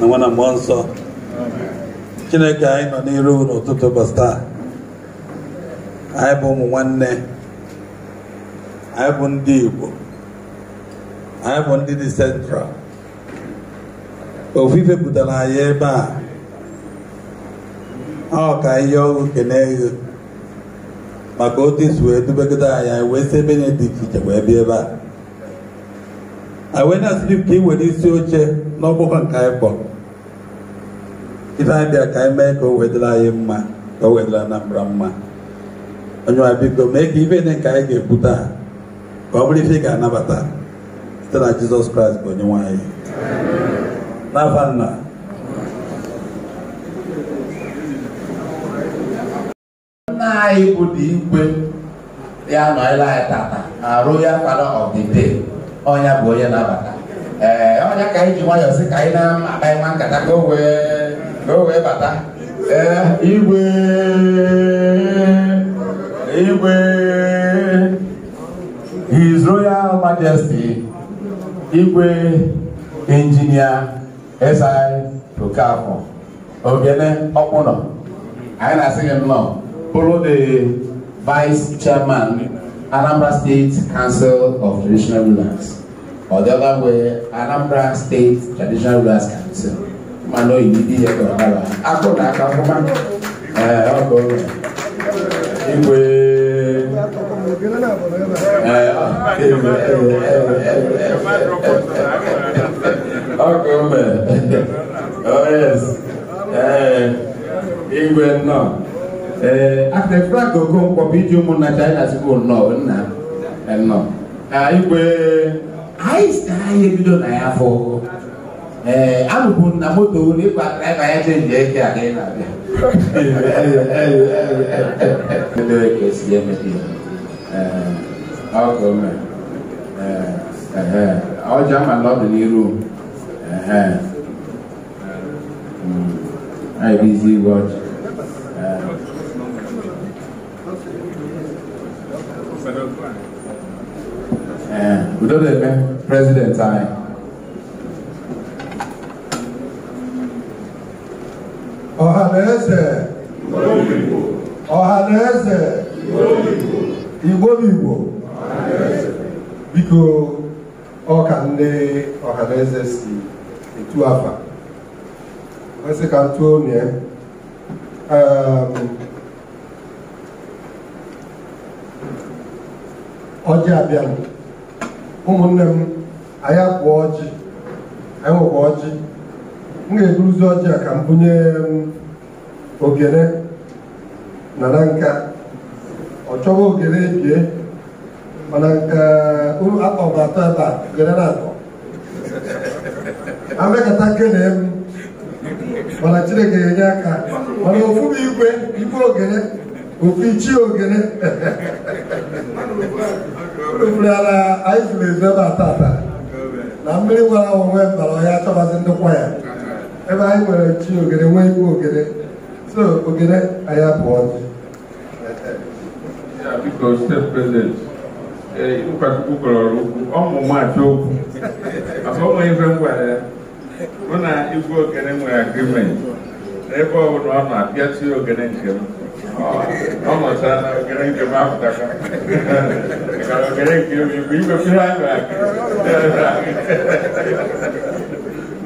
na nwa na mmụọ nsọ chineke anyị nọ n'iru n'ụtụtụ ụbọchị taa anyị bụ ụmụ nwanne anyị bụ ndị igbo anyị bụ ndị dị sentral ofufe pụtara anyị ebe a ọ ka ihe ọgụ keneghị maka otu isi wee dubegide anya anyị wee si ebe nye dị iche iche wee bịa ebe a anyị wee na ka ị were isi oche n'ọgbakọ nke anyị kpọrọ ife abịa ka anyị mee ka o wedịla anyị mma ka o wedịla Anambra mma onye wa biko mee ka ife dị ka anyị ga-ekwu taa ka ọ bụrụ ife ị ga-anabata site na Jizọs Kraịst bụ onye nwanyị. anyị n'afa nna nna anyị bụ dị igwe ya nọnyela anyị tata na Royal Father of the ọnya bụ onye nabata ee ọnya ka anyị ji nwayọọ sị ka anyị na-akpa nwa nkata ka o wee na wee bata ee igwe igwe his royal majesty igwe injinia si okafor ogene ọkpụnọ anyị na-asị gị nnọọ bụrụ the vice chairman anambra state council of traditional rulers or the other way anambra state traditional rulers council mano yidi ya kwa baba ako na aka kuma eh ako igwe eh igwe ako me oh yes eh igwe no eh after flag go go kwa biju mu na china school no na no ah igwe I stay ebido na ya for ee eh, anụbu na moto ụlọ ịkwa draịva ya chenji eke a ka ị na-abịa edere ka esi emepe eh, ọka ome eh, ọjọ amala ọdịnihu ibizi hmm. igwe ọjị udo na-eme prezidenti anyị ọhaneze ọhaneze igbobigbo biko ọka ndị ọhaneze si etu afa masị ka tụọ onye um, ọjị abịa, ụmụnne m anyị akwa ọjị anyị nwekwa ọjị m ga-eburuzi ọjị a ka m bunye um, ogene nara nka ọ chọwa ogene ebie mana nke um, akpọba atọ ebe a ogene na-atọ amekata kene m mana chineke ga-enye aka mana ofu bụ igwe igwe ogene ofu ichie ogene rufurala anyị furu ezu ebe a ata na mmiri nwere nwara onwe mbara ọhịa achọbazi kwa ya ebe anyị nwere chi ogede nwee ikwu ogede so ogede anyị apụọ biko step president ịlụkwachukwu eh, kọrọrọ ukwu okwu maka ọ nwere ife ngwara ya mụ na igwe ogene nwere agrimenti ọbụla ọ na-apịatụ ogene nke m ọ nọchaa na ogene nke m apụtaka ogene nke m ihe anyị nwere agrimenti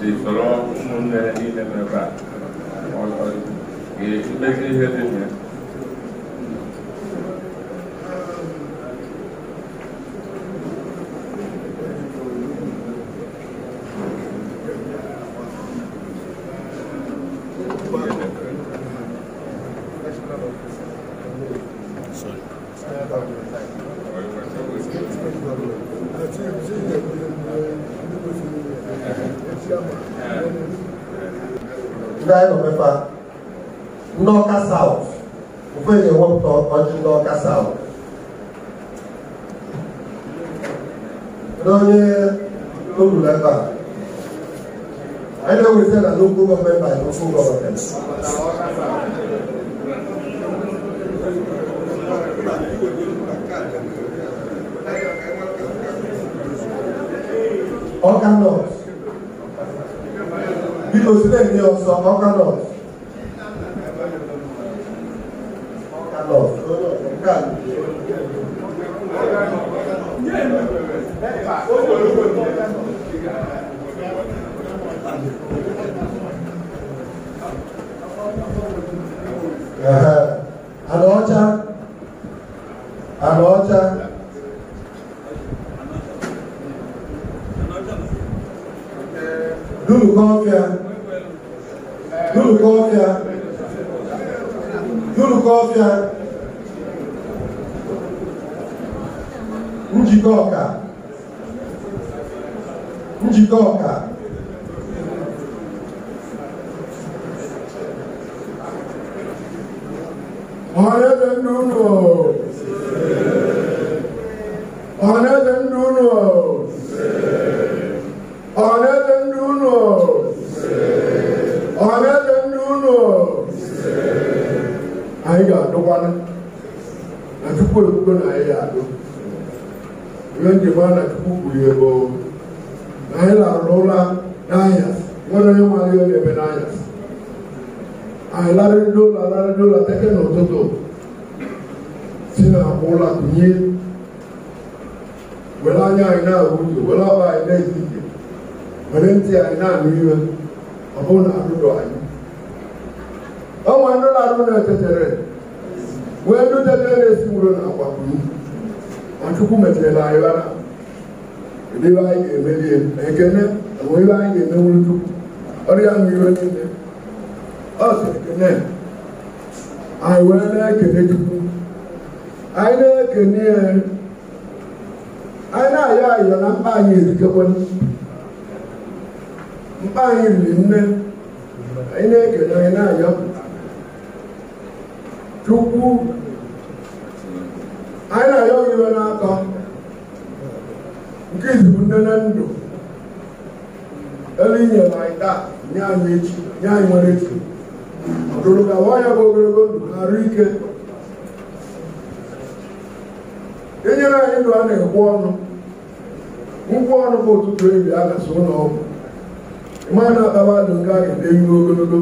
si soro ụmụnne niile n'ebe a mkpezi ihe dị local government by local governments. Organ laws. Bí o sílẹ̀ ní ọ̀sán organ laws. n'ụlọ ọgwụ nwa na-akpara adụ nke anyị ga-eru ogologo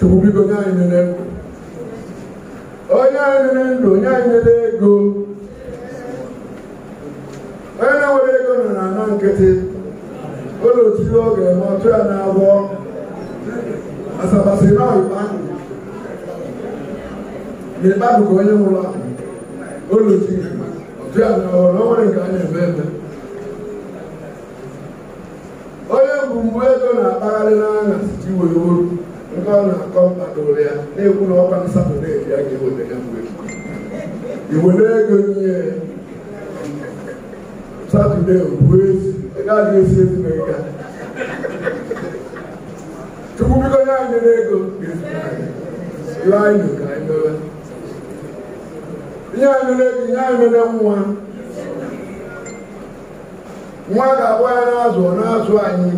chukwu biko nye anyị nene ndụ onye anyị nene ndụ onye anyị nene ego onye na-enwere ego nọ na ana nkịtị ụlọ otiri ọ ga ọtụ ya na-abụọ asabasị na ọyịkpa n'ikpa ka onye nwụrụ ahụ ụlọ otiri ọtụ ya na ọrụ o nwere nke a eme onye bụ mgbu ego na-akpagharị n'anya iji were oru nke ọ na-akọ mkpadoro ya na-ekwu na ọkwa na satọde ya ga-eweta ya mgbe iwere ego nye satọde bụ ezi gaghị esi ezumike chukwu biko nye anyị n'ego ihe anyị mere ego nye anyị mere nwa nwa ga-abụ ya na-azụ ọ na-azụ anyị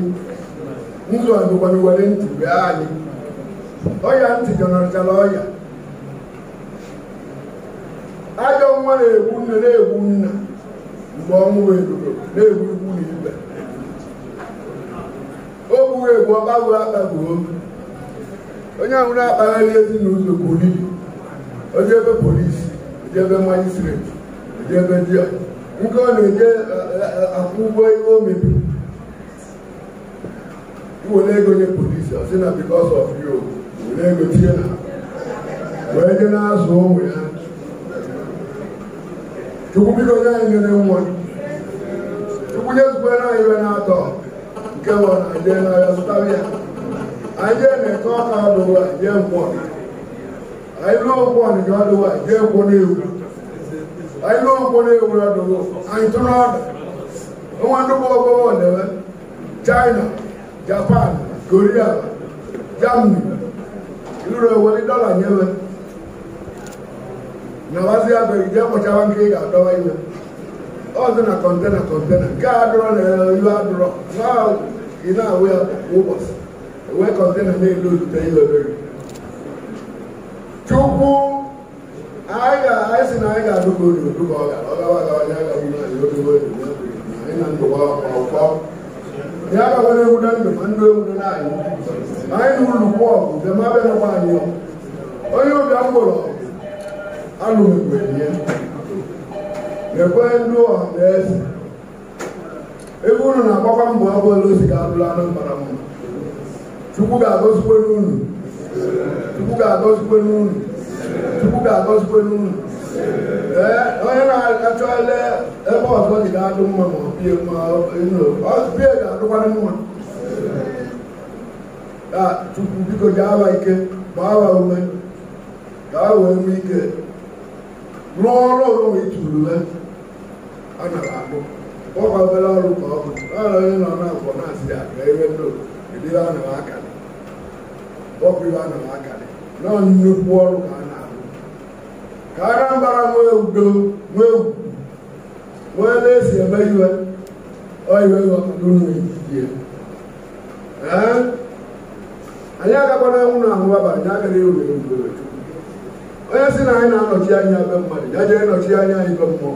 nzụ azụkwara were ntị bịa anyị ọya ntị jọnọtara ọya ajọ nwa na-egbu nne na-egbu nna mgbe ọnwụ eruo na-egbu igbu na ibe o gbughị egbu ọgbago akpagbuo onye ahụ na-akpagharị ezinụlọ buru onye ebe polisi onye ebe majistreti onye ebe diọcha nke ọ na enye e, akwụ ụgwọ ihe o mebiri were ego nye polisi ọ sị na because of you were ego tinye na wee nye na-azụ ụmụ ya chukwu biko nye anyị nyere nwa chukwu nyezukwere anyị iwe na-atọ nke bụ na anyị na n'ahịa zụtara ya anyị jee na-ete ọka adụwa jee mkpọ anyị ruo mkpọ nke ọdụwa jee kwụ n'ihu ayilo nkolo ewura dogo anyitɔnɔ ada wọn do bɔ bɔ bɔ lɛbɛ china japan korea germany ìlú rẹ wọlé dọ́là yẹn bɛ na wá sí abẹ ìjẹ kọjá wa nké yà dọwọ yìí bɛ ɔsɛ na kɔntɛna kɔntɛna ká adúrɔ lɛ ìlú adúrɔ náà iná àwẹ wọbọs ìwé kɔntɛna ní ìlú olùtẹ yìí bɛ bɛ rí. chukwu. anyị sị na anyị ga-adụba unu agawa agaghị anyị na ndụwa ndụ ma ndụ ewu na anyị na ụlọ kwọ ọgụ bịa ma bịanakwa anyị onye ụbịa mgbụrụ alụmgbenye na-ekwe ndị ọha na eze ebe unu na-agbakwa mbọ abụọla ozi ga-abụrụ anụ mkpara mma chukwu ga-agọzikwe tukuka akɔsukɔ nu mu ɛ ɔyɛ na atsɔ lɛ ɛfɔ ɔsɔ ti ka do mu mɔ bie mu ɛnu ɔbie ka do wani mu a tuku biko dza awa ike ba awa wɛ ka awa emu ike lɔɔrɔ lɔɔrɔ itu lɛ ana ka do kɔkɔ bɛ lɛ ɔlu kɔ ɔlu yɛ na ɔna kɔ na si agbɛ do ebi wa na wa kali kɔkɔ yi wa na wa kali lɔɔri nnukwu ɔlu ka ka Anambra nwee udo nwee ugwu nwee na-esi eme iwe oyiwe ghọtadunye ee anyị agakwana anwụ na ahụ aba anyị agaghị ewe ewu onye si na anyị na-anọchi anya ebe mmadụ ya jee nọchi anya anyị be mmụọ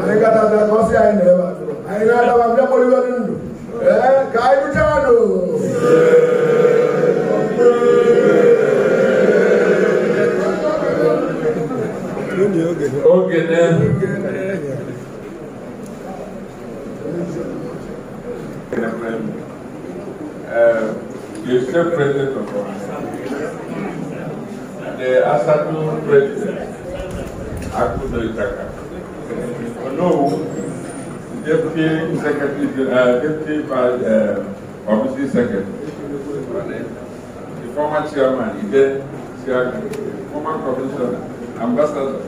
anyị katata ka ọ sị anyị na ebe atụrụ anyị na-adaba mbịakpọriwe ndụ ee ka anyị bụchaa ndụ ogene the state president of Ghana the asatu president Akudo Itaka Onowu deputy secretary uh, deputy uh, obviously secretary the former chairman Ibe Siaga former commissioner ambassador.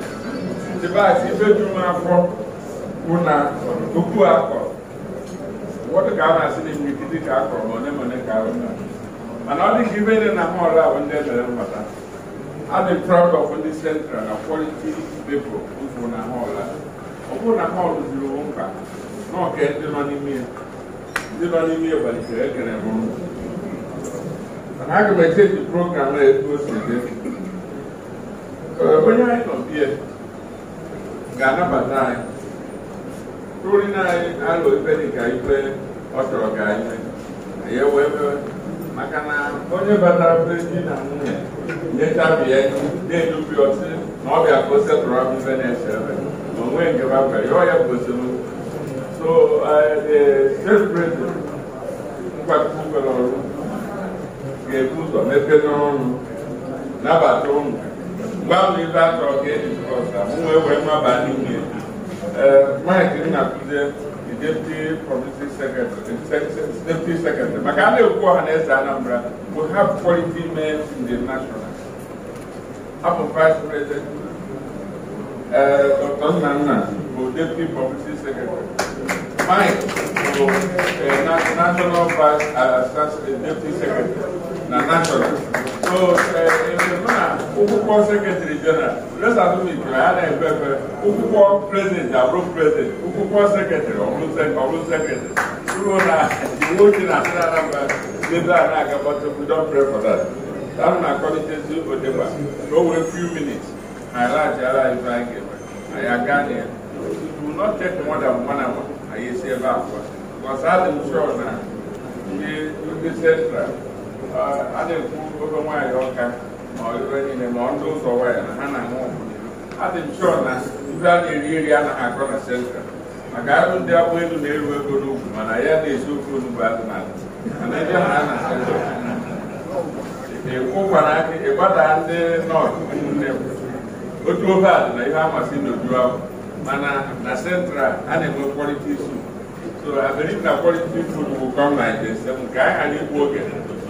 device ife ju m afọ bụ na okwu akọ ụfọdụ ka a na-asị na imirikiti ka akọrọ ma one ma one ka arụ mana ọ dị ka ibe dị na mọlụ ahụ ndị emere a dị proud of ndị central na quality people bụ na mọlụ ọ bụrụ na mọlụ juru mkpa ọka ndị nọ n'ime ya ndị nọ n'ime ya gbalitere ekere bụ mana aga m echeji program na-ekwu ose dị onye anyị nọ bie ga-anabata anyị ruri na anyị alụ ife dịka ife ọ chọrọ ka anyị mee ya wee mewe maka na onye batara be di na nwunye nyechabi ya na-edubi ọtị na ọ bịa ka o setụrụ abụ na-eche ebe ma onwe nke bakwa ya ọ ya bụ esemokwu so celebrating nkwakọkwere ọrụ ga-ebu ụzọ mepee n'ọrụ nabata ụmụ mgbanwe ebe a chọrọ ka eji nwe wee maba n'ime Mike Nnakwute deputy publicity secretary deputy secretary maka a na-ekwu na eze we have quality men in the national abụ vice president Dr. Nana, bụ deputy publicity secretary Mike bụ eh, national vice eh, deputy secretary na national ụkwụkwọ sekretari jeneral resatụmikiri a na-ekpe ekpe ụkwụkwọ prezidenti abụrụ prezidenti ụkwụkwọ sekretari ọbụrụ sekretari ruo na iwu ochie na asịrị anamba ebe a na-agabata don pray for that tam na akọlitezi odegba ka o few minutes na alaghachila ibe anyị ga-eme anyị aga na ya do not take more than one hour anyị esi ebe akwa adị m na ndị central a na-ekwu ogo nwaanyị ọka ma ọlụbe niile ma ụzọ na ha na-anwụ adị m chọọ na ndị a na-eri eri anaghị akọ na sentral maka arụ ndị agbụ elu na-eru ego n'ugwu mana ya na-esi ofe onugbu azụ na mana ebe ha na aka ịgbada ndị nọọsụ ụmụnne m otu ofe dị na ihe amasị n'oju ahụ mana na sentral a na-enwe kwọrịta isu so abịrị na anyị ghara igbu oge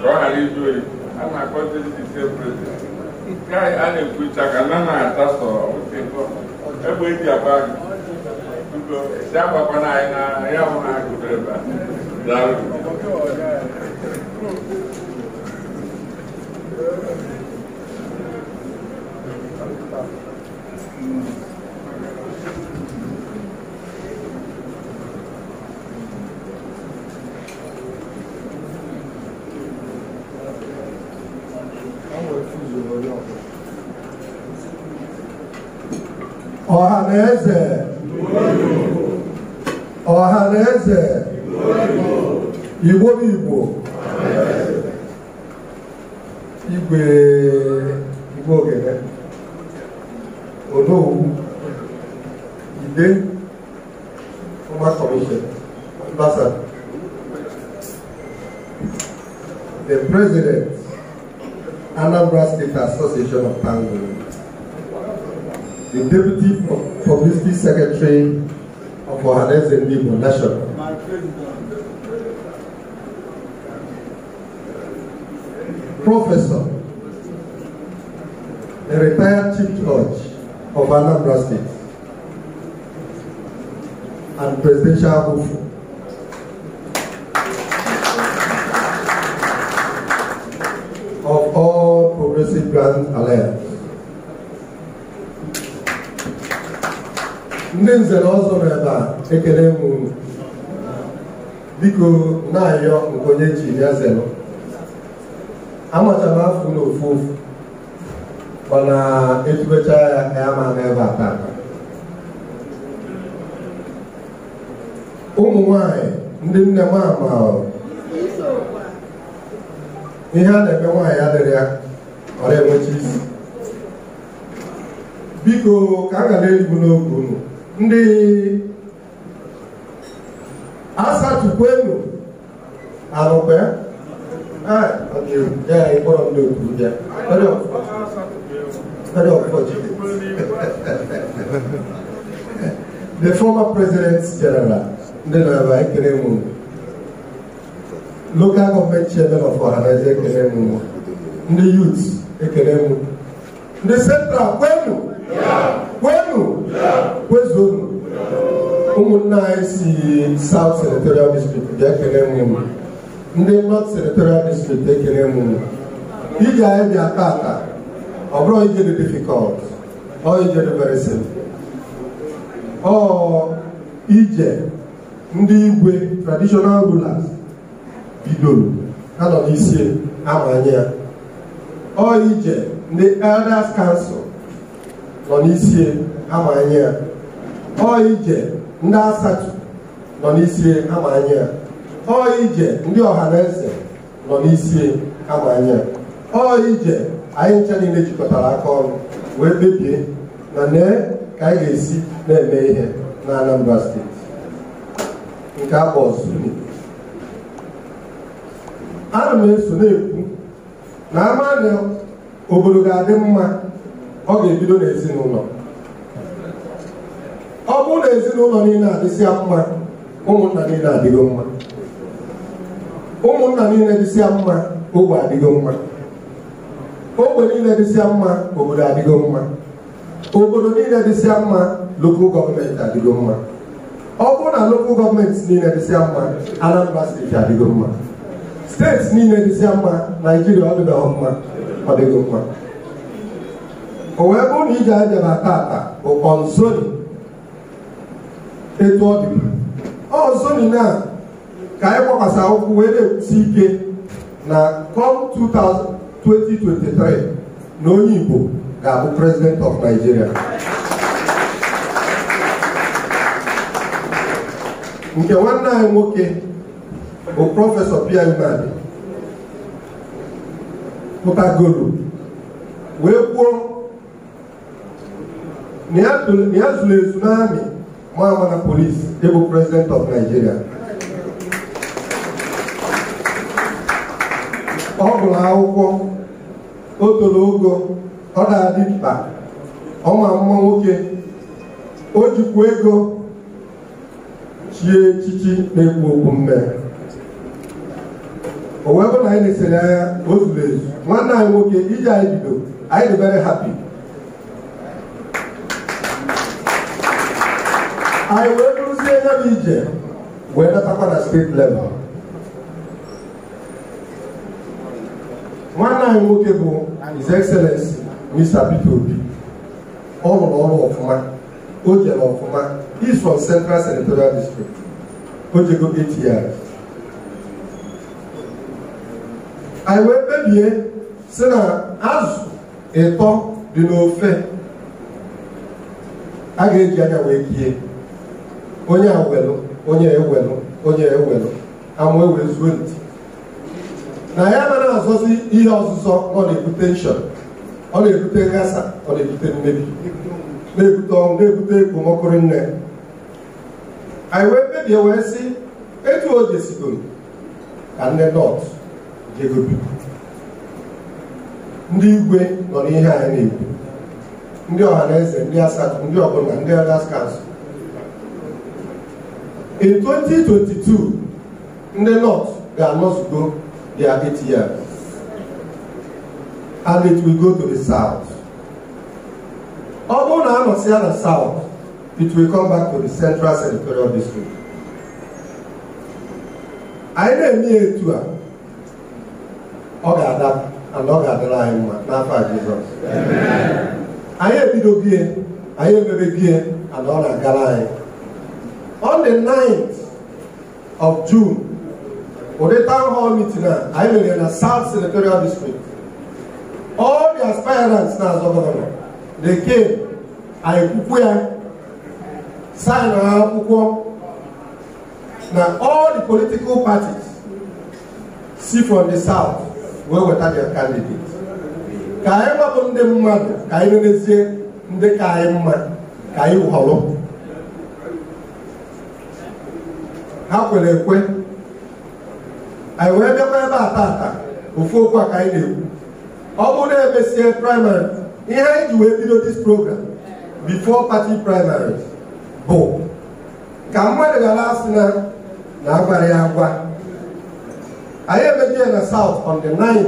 ka ọ ghara ịjụ oyi a na-akpọzi ndị ise prezident nke a na-ekwucha ka na na-ata sọ egbe eji agba ugo esi agbakwana anyị na ya bụ na agụdere ebe a daalụ ọhaneze ọhaneze igbo bụ igbo igwe igbo ogene onowu ide ọma kọmishọn mbasa the president anambra state association of pangola the Deputy Publicity Secretary of Ohanaeze SNB National. Professor, a retired Chief Judge of Anambra State and Presidential Hopeful. of all Progressive Grand Alliance. ndị nzere ọzọ nọ ebe a ekele m unu biko na-ayọ nke onye ji ya zelụ amachara afọ na ofu ofu mana etubecha ya ya ma ebe a taa ụmụ nwanyị ndị nne m ama ihe a na-eme nwaanyị adịrị ya ọ na isi biko ka a ga na-eribu n'oge unu ndị asatukwu enu arụkwe ya ịkpọrọ ndị okwu ya the former president general ndị na-aba ekele mụ local government chairman of ọhanaeze ekele mụ ndị youth ekele mụ ndị central kwenu kwenu kwezuo ụmụnne anyị si South Senatorial District dị ekele mmiri ndị North Senatorial District ekele mmiri ije anyị bịa ata ọ bụrụ ije dị difficult ọ ije dị very ọ ije ndị igwe traditional rulers bidoro ha nọ n'isi amanye ya ọ ije ndị elders council nọ n'isie amanye ya ọ ije ndị asatọ nọ n'isi amanye ya ọ ije ndị ọha na eze nọ n'isi amanye ya ọ ije anyị ncha niile jikọtara aka ọnụ wee kpebie na nee ka anyị ga-esi na-eme ihe na Anambra steeti nke akpọ ọzọ. ana m eso na-ekwu na ama obodo ga-adị mma ọ ga-ebido n'ezinụlọ ọ bụrụ na ezinụlọ niile adịsịa mma ụmụnna niile adịgo mma ụmụnna niile dịsịa mma ogbe adịgo mma ogbe niile dịsịa mma obodo adịgo mma obodo niile dịsịa mma lokal gọọmenti adịgo mma ọ bụrụ na lokal gọọmenti niile dịsịa mma Anambra steeti adịgo mma steeti niile dịsịa mma Naijiria ọdịdọọ mma ọ mma o wee bụrụ na ije abịara tata ụkọ nzoni etu ọ dị ọzọ na ka anyị gbakwasa ụkwụ wee na-ekwusi ike na come 2023 na onye Igbo ga-abụ president of Nigeria nke nwanne anyị nwoke bụ prọfesọ Pierre Imadi pụtagoro wee kwuo na ya zuru ezu n'amị Mahamana Police, Able President of Nigeria. Ọ gụrụ akwụkwọ, o toro ogo, ọ na-adị mkpa, ọ ma mma nwoke, o jikwa ego chie echichi na-ekwu okwu mme. O wee bụ na anyị na-esere anya o zuru ezu. Nwanne anyị nwoke iji anyị bido, anyị debere hapi. anyị wee bụrụzie nya bụ ije wee natakwa na steeti level nwanne anyị nwoke bụ His Excellency Mr. Peter Obi ọ rụrụ ọrụ ọfụma o jere ọfụma is from Central Senatorial District o jego eight years anyị wee kpebie si na azụ ịtọ dị n'ofe a ga-eji anya wee kie onye a welụ onye ewelụ onye ewelụ ama ewee zuo nti na ya anaghị azọzi ihe ọzụzọ ọ na-ebute nshọn ọ na-ebute nghasa ọ na-ebute mmebi na-ebute ọnwụ na-ebute ekpomọkụrụ nne anyị wee kpebie wee sị etu o jesigoro ka nne nọt jego ndị igwe nọ n'ihe anyị na-ekwu ndị ọha na eze ndị asatọ ndị ọbụla ndị agha skansụ in 2022 ndị north ga-anọzugo their eight years and it will go to the south ọ bụrụ na anọsịa na south it will come back to the central senatorial district anyị na-eme etu a ọ ga-ada and ọ ga-adara anyị mma n'afọ a Jizọs anyị ebido bie anyị emebe bie and ọ na-agara anyị on the 9th of June ụdị town hall meeting a anyị mere na South Senatorial District all the aspirants na-azọ gọvanọ they came anyị kwukwu ya sign ha akwụkwọ na all the political parties see from the south wee weta their candidate ka anyị gbapụ ndị mmadụ ka anyị nenezie ndị ka anyị mma ka anyị họrọ ha kwere ekwe anyị wee bịakwa ebe a tata ofu okwu a ka anyị na-ekwu ọ bụrụ na emesie praịmarị ihe anyị ji wee bido dis program before party primary bụ ka mmadụ gara asị na na agbara ya agwa anyị emebi ya na south on the 9th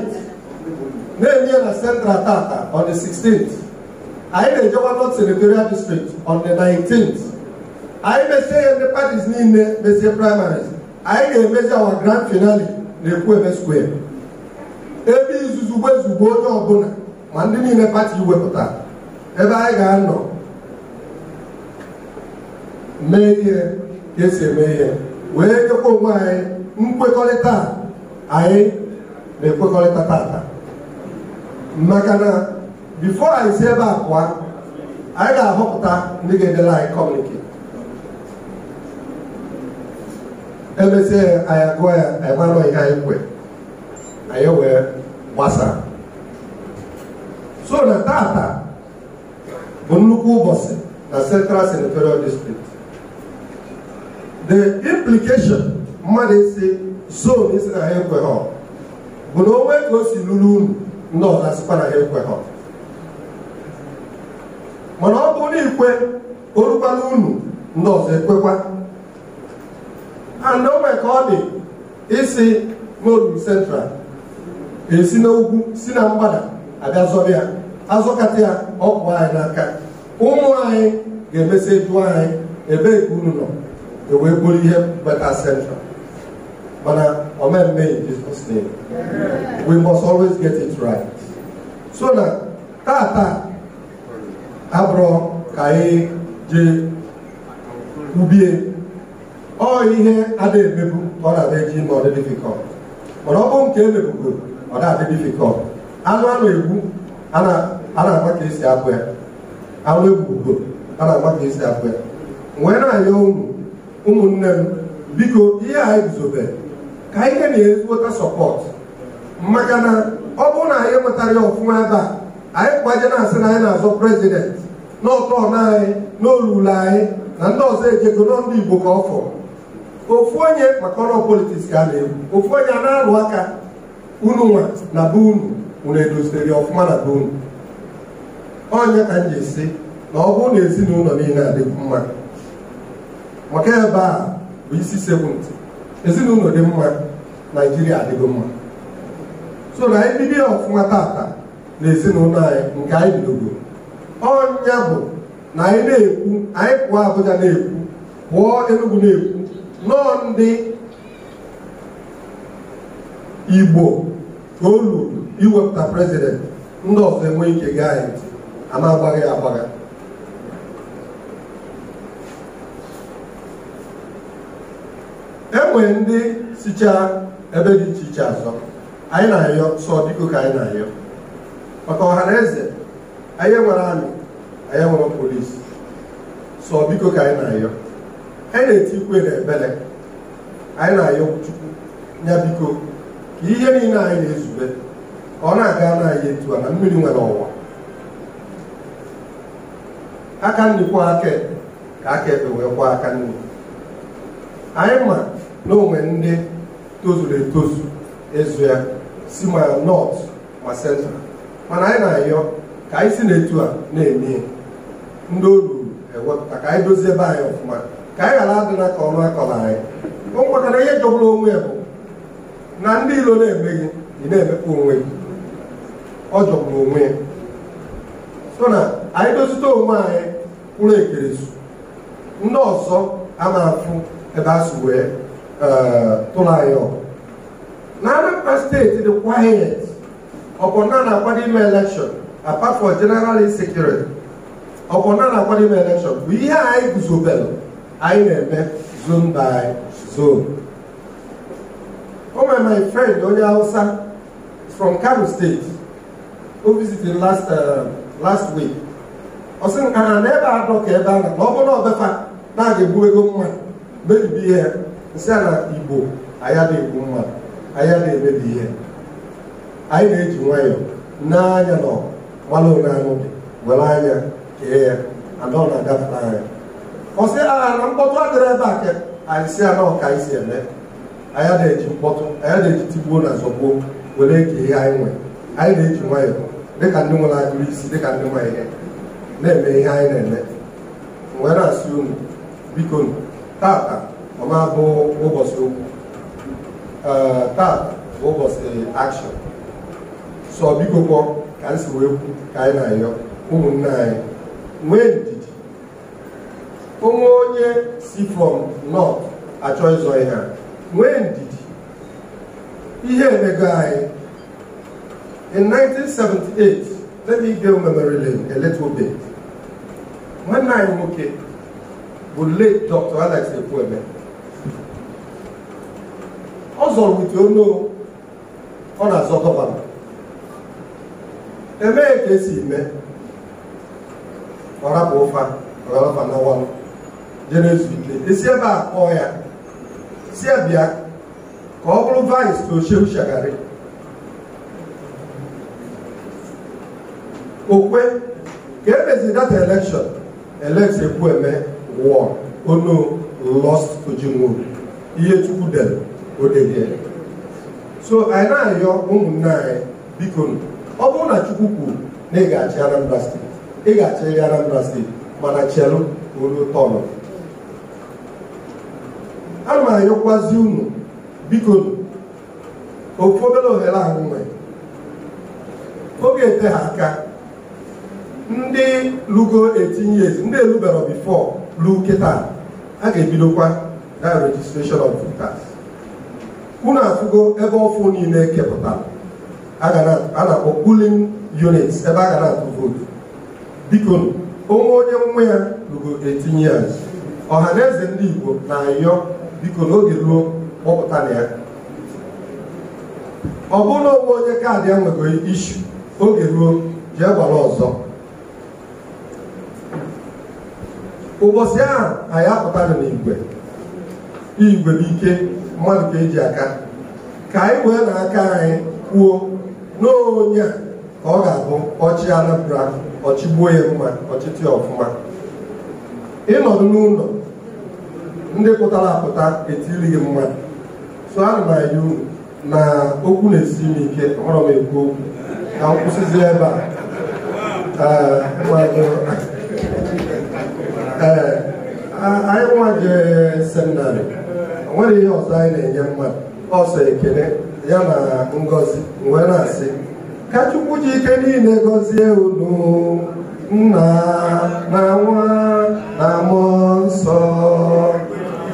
na-eme ya na central tata on the 16th anyị na-ejekwa north senatorial district on the 19th anyị mesie ya ndị patis niile mesie primaries anyị ga-emezi awa grand finale na Ekwueme square ebe izuzu ezugbo onye ọbụla ma ndị niile pati wepụta ebe anyị ga-anọ mee ihe ka esi eme ihe wee nyekwa onwe anyị nkwekọrịta anyị na-ekwekọrịta tata maka na bifo anyị si ebe a pụa anyị ga-ahọpụta ndị ga-edela anyị kọmunike emesịa ya anyị agụọ ya anyị ihe anyị kwe anyị wee gbasaa so na tata bụ nnukwu ụbọchị na central senatorial district the implication mmadụ isi zon isi na ha ekweghọ bụ na onwe ka o si lụrụ unu ndị ọzọ sikwa na ha ekweghọ mana ọ bụ na ikwe orukwala unu ndị ọzọ ekwekwa and o nwere ka ọ dị isi molu central esi n'ugwu si na mgbada aga zọrọ ya azọkata ya ọkụ anyị n'aka ụmụ anyị ga-emesị jụọ anyị ebe ka unu nọ ewee ihe bata central mana omemme in Jesus name we must always get it right so na tata abụrụ ka anyị jee ubie ọ ihe adịghị emebu ọ na-adị eji ime mana ọ bụrụ nke emebugoro ọ na-adị difikọt anụ a na-egbu a na-agba ka esi abụ ya anụ egbugboro a na-agba ka esi abụ ya wee na ụmụ ụmụnne m biko ihe anyị guzobe ka ihe na-ezigbota sọpọt maka na ọ bụrụ na anyị nwetara ya ọfụma ebe a anyị kwaje na-asị na anyị na-azọ prezident n'ọtọ na anyị n'olulu anyị na ndị ọzọ ejego nọ Igbo ka ọ fọrọ ofu onye maka ọrụ politiks ka a na-ekwu ofu onye a na-alụ aka unu nwa na be unu unu edoziri ọfụma na be unu onye ka m ji si na ọ bụrụ na ezinụlọ niile adịghị mma maka ebe a bụ isi sekpụntị ezinụlọ dị mma naijiria adịgo mma so na anyị bido ọfụma tata na ezinụlọ anyị nke anyị bidogo ọnya bụ na anyị na-ekwu anyị pụọ abụja na-ekwu pụọ enugwu na-ekwu nọọ ndị igbo Olu o luru iwepụta prezidenti ndị ọzọ enwe ike gaa anyị ntị ama agbaghị agbagha enwere ndị sichaa ebe dị iche iche azọ anyị na-ayọ sọ biko ka anyị na-ayọ maka ọha na eze anyị nwere anyị nwere polisi sọ biko ka anyị na-ayọ anyị na-eti ikwe na ebele anyị na-ayọ chukwu ya biko ka ihe niile anyị na-ezube ọ na-aga na anyị etu a na mmiri nwere ọwa aka nri kwa aka ka aka ekpe wee kwa aka nri anyị ma na onwe ndị tozuru etozu ezu ya si ma nọt ma sentral mana anyị na-ayọ ka anyị si n'etu a na-eme ndị o ruru ewepụta ka anyị dozie ebe anyị ọfụma ka anyị ghara adị na ka ọnụ akọrọ anyị o nwetara ihe jọgburu onwe ya bụ na ndị ilo na-eme gị ị na-emekpa onwe gị ọ jọgburu onwe ya so na anyị dozite onwe anyị kwụrụ ekeresu ndị ọzọ a na-afụ ebe a wee eh, tụrụ anyị na Anambra steeti dị quiet ọkpọna na-akwado ime elekshọn apart for general insecurity ọkpọna na-akwado ime elekshọn bụ ihe anyị guzobelụ anyị na-eme zone by zone o oh, my friend onye hausa from kano state o visited last uh, last week ọ sị nka na ebe a ka ebe a na ọ bụrụ ọbefa na-aga egbu ego mma mebibi ihe ya nsị a na igbo anya na-egbu a anya na-emebi ihe anyị na-eji nwayọọ anya na ọgbalụ onye anụ were anya kee ya anọ na-agafe anya Ọ ọsị agha na mkpọtụ adịrị ebe a ke anyị si anọ ka anyị si eme anyị na-eji mkpọtụ anyị na-eji tigbuo na zọgbuo were ke ihe anyị nwe. anyị na-eji nwayọ dịka ndị nwere agụrụ isi dịka ndị nwere ihe na-eme ihe anyị na-eme wee na-asị unu biko tata ọma bụ ụbọchị okwu tata bụ ụbọchị akshọn sọ biko kwọ ka m si wee kwu ka anyị na-ayọ ụmụnne anyị nwee onwe onye si from north achọ ịzọ ihe nwee ndidi ihe emego anyị in 1978 let me give memory lane a little bit nwanne anyị nwoke bụ late Dr. Alex Ekwueme ọ zọrọ ute ono ọ na-azọ gọvanọ emee ka esi mee ọ rapụ ụfa ọgalafa n'ọwa jere ike esi ebe a kpọọ ya si ya bịa ka ọ bụrụ vais na ochewu shagharị okwe ka emeziri data elekshọn elekt ekwu eme wụọ ono oh, lost ojinwo ihe chukwu dere odedie oh, so anyị na-arịọ ụmụnne anyị biko ọ bụrụ na chukwu kwuru na ị ga-achị Anambra steeti ị ga-achị Anambra steeti mana chelụ ruo tọnụ ana m ayọkwazi unu biko ofu obere ohere ahụ nwere oge ete ha aka ndị lugo 18 years ndị elubero bifo ruo kịta a ga-ebidokwa na registration of voters unu afụgo ebe ọfụ niile e kepụtara a na-akpọ polling unit ebe a ga na-atụ vootu biko onwe onye nwa ya lugo 18 years ọha na eze ndị Igbo na-ayọ biko na oge ruo kpọpụta na ya ọ bụrụ onwe onye kaadị ya isu oge ruo jee gwara ọzọ ụbọchị ahụ anyị apụtara n'igwe igwe n'ike mmadụ ka eji aka ka anyị wee na aka anyị kwuo n'onye a ka ọ ga-abụ ọchị anapụra ọchịgbuo ya mma ọchịtị ọfụma ịnọdụ n'ụlọ ndị pụtara apụta etiri gị mmadụ so ana m anya unu na okwu na-esi m ike ọrọ m ekwu okwu ka m kwụsịzi ebe a anyị nwa jee seminarị nwere ihe ọzọ anyị na-enye mmadụ ọsọ ekele ya na ngozi wee na-asị ka chukwu ji niile gọzie unu nna na nwa nsọ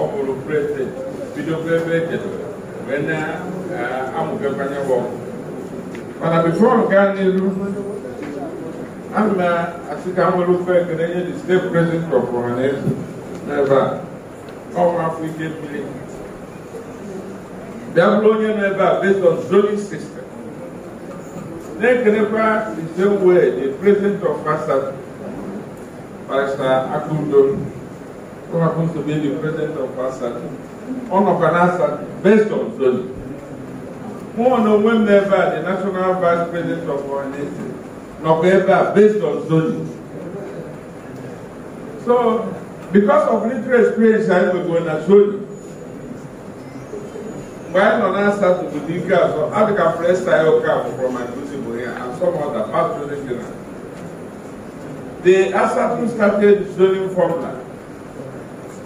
ọ bụrụ prezidenti bidokwa ebe ejedoro wee na-amụbekwanye ọgwụ mana bifo m n'elu n'iru ana m asị ka nwere ofe ekele nye the state president of ọhaneze n'ebe a ọnwa afọ ike mmiri bịa bụrụ onye nọ ebe a based on zoning system na-ekelekwa the same way the president of fasa barista akudo who happens to be the president of ASAC, on ASAC, based on Florida. One of them never, the national vice president of our nation, not ever based on Zoli. So, because of little experience I was going to Zoli, while on answer to the legal, so I think I pressed style from my principal here and some other past president. The Asatun started zoning formula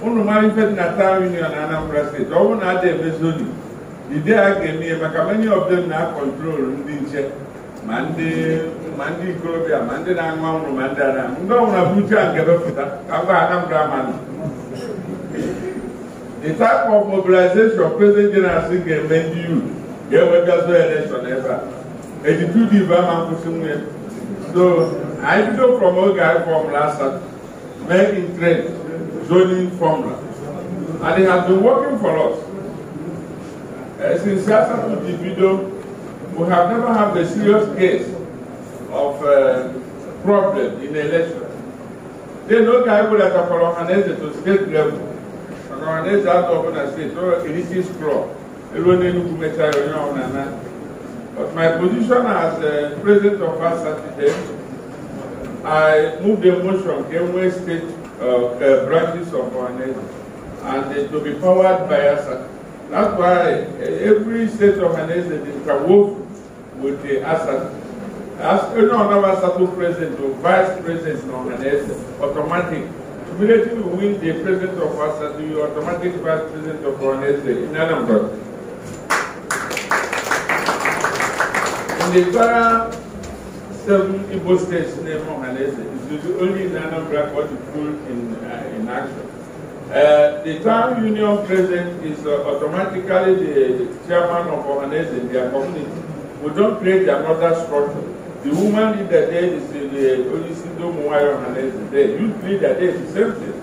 unu mara ife dị na town union na Anambra steeti ọ bụrụ na ada eme zoning ide a ga-eme ihe maka many of them na-akọntrol ndị nche ma ndị ikorobịa ma ndị na-aṅụ anwụrụ ma ndị ada ndị ọnwụra bụ uche a nke bepụta ka ngwa Anambra manụ the type of mobilization president general ga-eme ndị youth ga-enwegazo election ebe a dị ibe ama nkwụsị nwunye so anyị bido from oge anyị fọm last mee in trend zoning formula. And it has been working for us. Uh, since Siasa took the we have never had a serious case of uh, problem in the election. They know Kaibu that are for Ohanese to state level. And Ohanese has to open a state, so it is strong. But my position as uh, president of our Saturday, I moved the motion, Kenway State uh, branches of our nation and to be powered by us. That's why every state organization is interwoven with the ASAC. As any other ASAC president or vice president organization, automatic. Immediately we win the president of will you automatic vice president of organization in Anambra. In the Para seven Igbo states named Ohanese It's the only nanograph what you pull in, uh, in action. Uh, the town union president is uh, automatically the, chairman of Ohanese in their community. We don't create another structure. The woman leader there is the, the Olisido Muwayo Ohanese. The youth leader there is the same thing.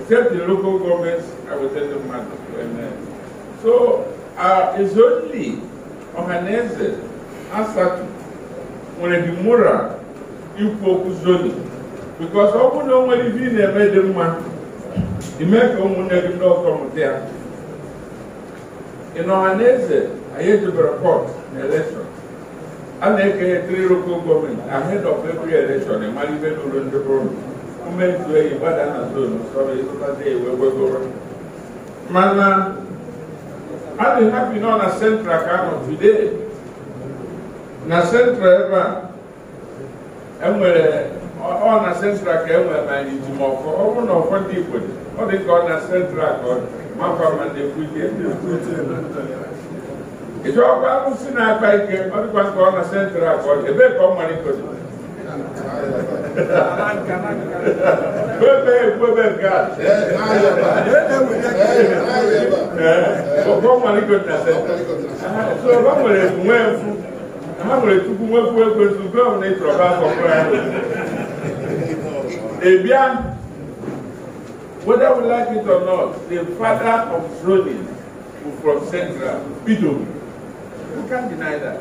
Except the local governments, I will tell them to matter. Uh, so uh, it's only Ohanese, Asatu, nwere dị moral ikwu okwu zoni because ọ bụ na o nwere ife ị na-eme dị mma ime ka ụmụnne gị ndị ọkọ mụta ya ị n'ọha na eze anyị ejebere pọt na elekshọn a na-eke three local gọọmenti ahead of every election ịmara ibe n'ụlọ ndị bụrụ umeju eyi gbada na zonu sọrọ ịzụtazi ewe wegoro mana a dị hapi nọ na central ka anọ today na central ebe a enwere ọ na central ka enwere ma ijimọkụ ọ bụrụ na dị igbo ọ dị ka ọ na central ka ọ makwa ma e na-ekwute ịchọkwa arụsị na-akpa ike ọ dịkwa na central ka ọ ebe ka ọ e na central. nwere nwe mfu. ha nwere tupu nwekwu ekwe tupu ọ na ịtọrọba akọkọ ya ebia whether we like it or not the father of droning from central bido we can't deny that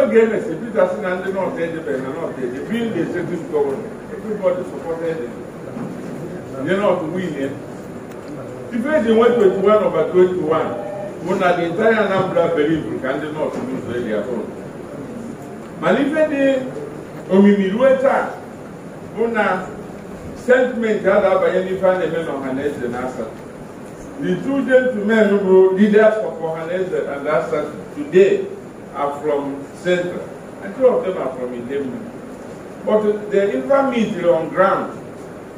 oge emesi peter si na ndị north edebere na north ede being the executive governor everybody supported him ndị north win ife eji nwe 21 over 21 bụ na the entire anambra believe ka ndị north lose earlier on malifeni ife una omimi ruo taa bụ na sentiment a na-abanye n'ife na na the two gentlemen who were leaders of Ohanese and Assad today are from Central, and two of them are from Idemu. But the infamy on ground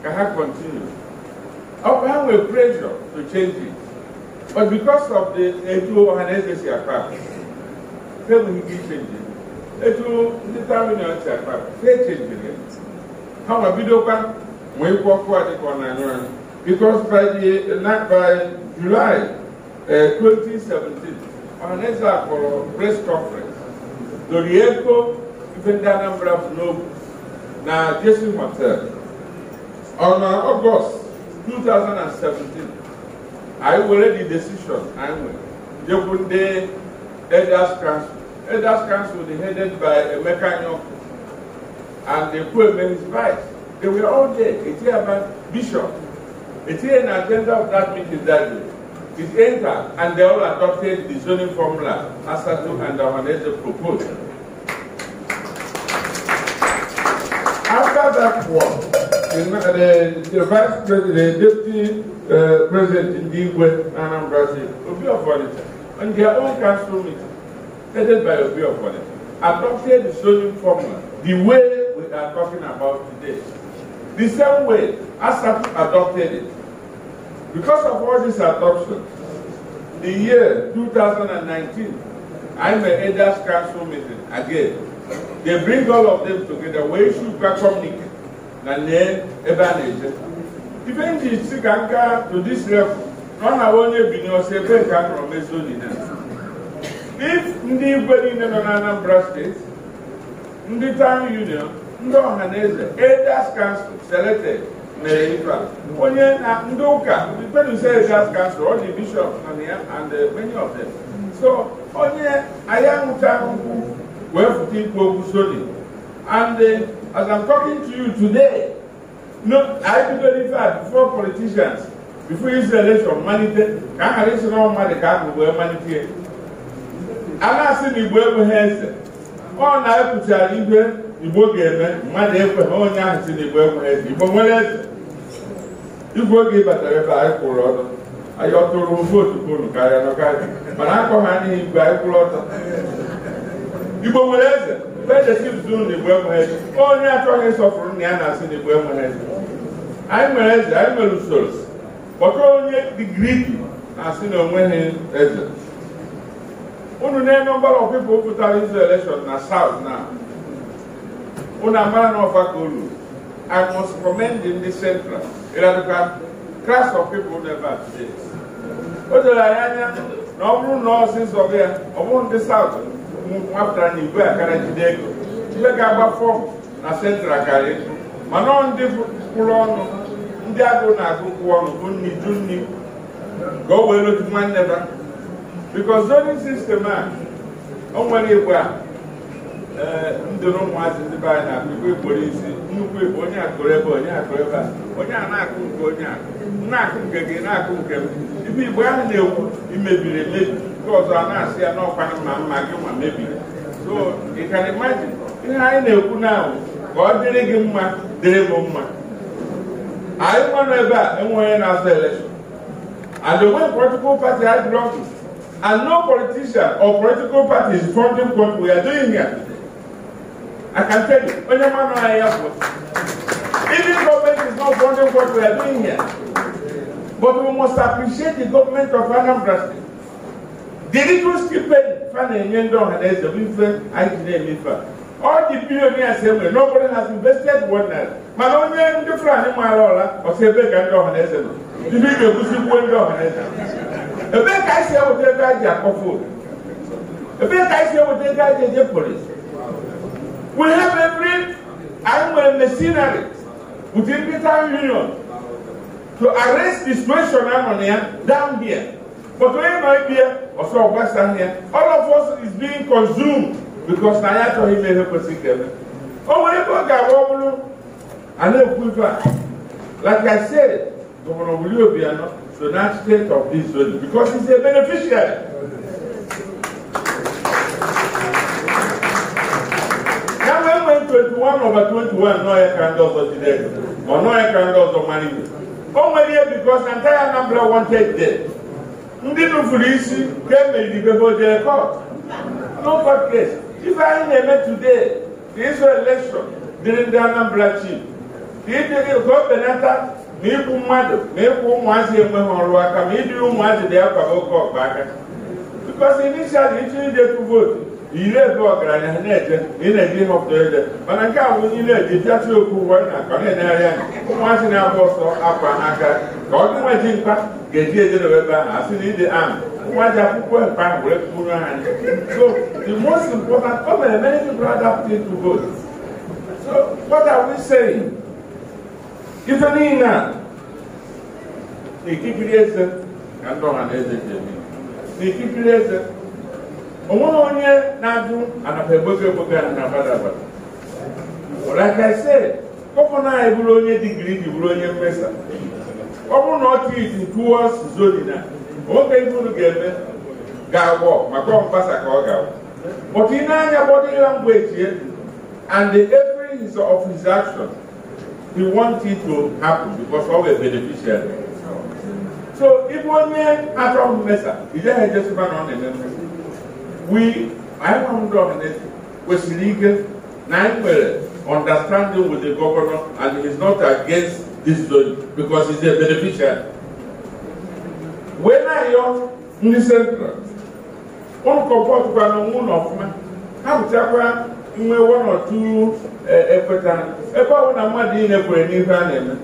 cannot continue. Our will pressure to change it. But because of the Etu Ohanese Siakar, they will be changing. etu ndị taminati akpa fechebiri ha ma bidokwa wee kwọkụ adịkọ na anyụ anyị because by, the, by July uh, 2017 Ọhaneze akpọrọ press conference dori ego ife ndị Anambra bụ n'obu na Jesu Hotel on August 2017 anyị were the decision anyị nwere jekwu ndị elders council Elders Council, they headed by a Nyoko, and they put him vice. They were all there. It's here about Bishop. It's here an agenda of that meeting that day. It's entered, and they all adopted the zoning formula as Satu and the proposed. After that war, the, the, the vice president, the deputy uh, president in the will be a volunteer, and they their own council meeting, headed by of Obiofone, adopted the sodium formula the way we are talking about today. The same way Asatu adopted it. Because of all this adoption, the year 2019, I'm an Elders Council meeting again. They bring all of them together. We should communicate. Even the Siganka to this level, not only Binose, but Kanro Mesonina. ndị igwe niile nọ na Anambra steeti ndị town union ndị ọhaneze na elders council selected mere ife onye na ndị ụka penuse elders council all the bishop na ya and eh, many of them so onye anyị anụcha ahụhụ wee fụta ikwu okwu soli and eh, as I'm talking to you today no i bidoro ife a before politicians before Israel election malite ka a ghara isi na dị ka ahụ wee malite A na asị igbo ekweghị eze ọ na-epụtara ibe igbo ga-eme mmadụ ekweghị onye ahụ si na igbo ekweghị eze igbo nwere eze igwe oge batara ebe anyị kwụrụ ọtọ anyị ọtụrụ vootu polu karịa n'ọkarị mana akọ ha n'ihi igwe anyị kwụrụ ọtọ igbo nwere eze fedesipụtụrụ e na igbo enweghị eze onye achọghị ịsọpụrụ na ya na-asị na igbo enweghị eze anyị nwere eze anyị nwere usoro kpọta onye digrii na-asị na onweghị eze unu na number of people who izu election na south na unu amara na ọfa ka unu i must commend the central ịradụka class of people never o doro anyị anya na ọ bụrụ na ọsịsọ ya ọ bụrụ ndị south nwapụtara na igwe akara jide ego ibe ga agbafọ na central karịa mana ọ ndị kwụrụ ọnụ ndị agụ na-agụ kwụ ọnụ bụ nni ju nni ka o wee lotu nwanne ba bikos zonin sistem a o nwere igwe a e, ndị na ụmụazị ndị be anyị na-akụ igwe kporo isi nnukwu igwe onye akụrụ ebe onye akụrụ ebe a onye a na-akụ nke onye a na-akụ nke gị na-akụ nke m ibe igbo ahụ na-ekwu imebiri emebi nke ọzọ a na-asị ya n'ọkwa mma mma gị ma mebiri so ị can imagine ihe anyị na-ekwu n'ahụ ka ọ dịrị gị mma dịrị m mma anyị nwanụ ebe a enweghị na azụ elekshọn and the way political party had And no politician or political party is funding what we are doing here. I can tell you, man no I Even government is not funding what we are doing here. But we must appreciate the government of Anambra State. The little stupid fan and yendo and as a winfer, I can name it for. All the billionaires say, well, nobody has invested one night. But only in the front, in my roller, or say, big and dog and as a. You one dog ebee ka anyị si enweta ego anyị ji akpọfu ebee ka anyị si enweta ego ji eje polis we have every anyị nwere machinery within the union to arrest the situation ahụ na ya down there but onye nọ ebe ya ọsọ ọgbasa ahịa all of us is being consumed because na ya achọghị ime ihe kwesịrị ka eme o nwere ebe ọ ga-agba ọ a na-ekwu ife a like i said gọvanọ Wuli Obiano should not take of this value because he's a beneficiary. Now when when 21 over 21, no air can also today, or no air can also money. Only here because the entire number wanted dead. Ndị nufuru isi ga-emeribego jere court. No court case. If anyị na-eme today, the Israel election, dịrị ndị Anambra chief. Ka ị dịrị ka o benata na ịkwụ mmadụ na ịkwụ ụmụazị enweghị ọrụ aka ma ịdịrị ụmụazị dị akwado oke ọgba aka bikọsi inishal ịchọ idekwu vootu ire ebe ọgaranya ha na-eje ị na-eji ihe ọpụta ede mana nke a bụ onye na-eji pịatụ okwu ụwa na ka ọ na-enegharị anya ụmụazị na-agba ọsọ akwa n'aka ka ọ gị nweji mkpa ga-eji ejedobe ebe ahụ asị na ide ahụ ụmụazị akwụkwọ mkpa ahụ were kpụrụ ha so the most important o mere many people adapt to vote so what are we saying ife niile a n'ikikiri na ikikiri eze onweghị onye na-ajụ anapa egbogo egbogo a na abada abada like I said gọvanọ na bụrụ onye digiri di bụrụ onye mesa ọ na ọ titi na nwoke iburu ga-eme ga-agwọ maka ọmgbasa ka ọ ga-agwọ but body language and the every is of his we want it to happen because all were beneficiaries. So if one man at all mesa, he just just run on and then we I found out that was legal nine well understanding with the governor and he's not against this zone because he's a beneficial. When I young in the central, on comfort by the moon of man, how to nwe nọtu ekweta e ebe na mmadụ niile kwere n'ihe a na-eme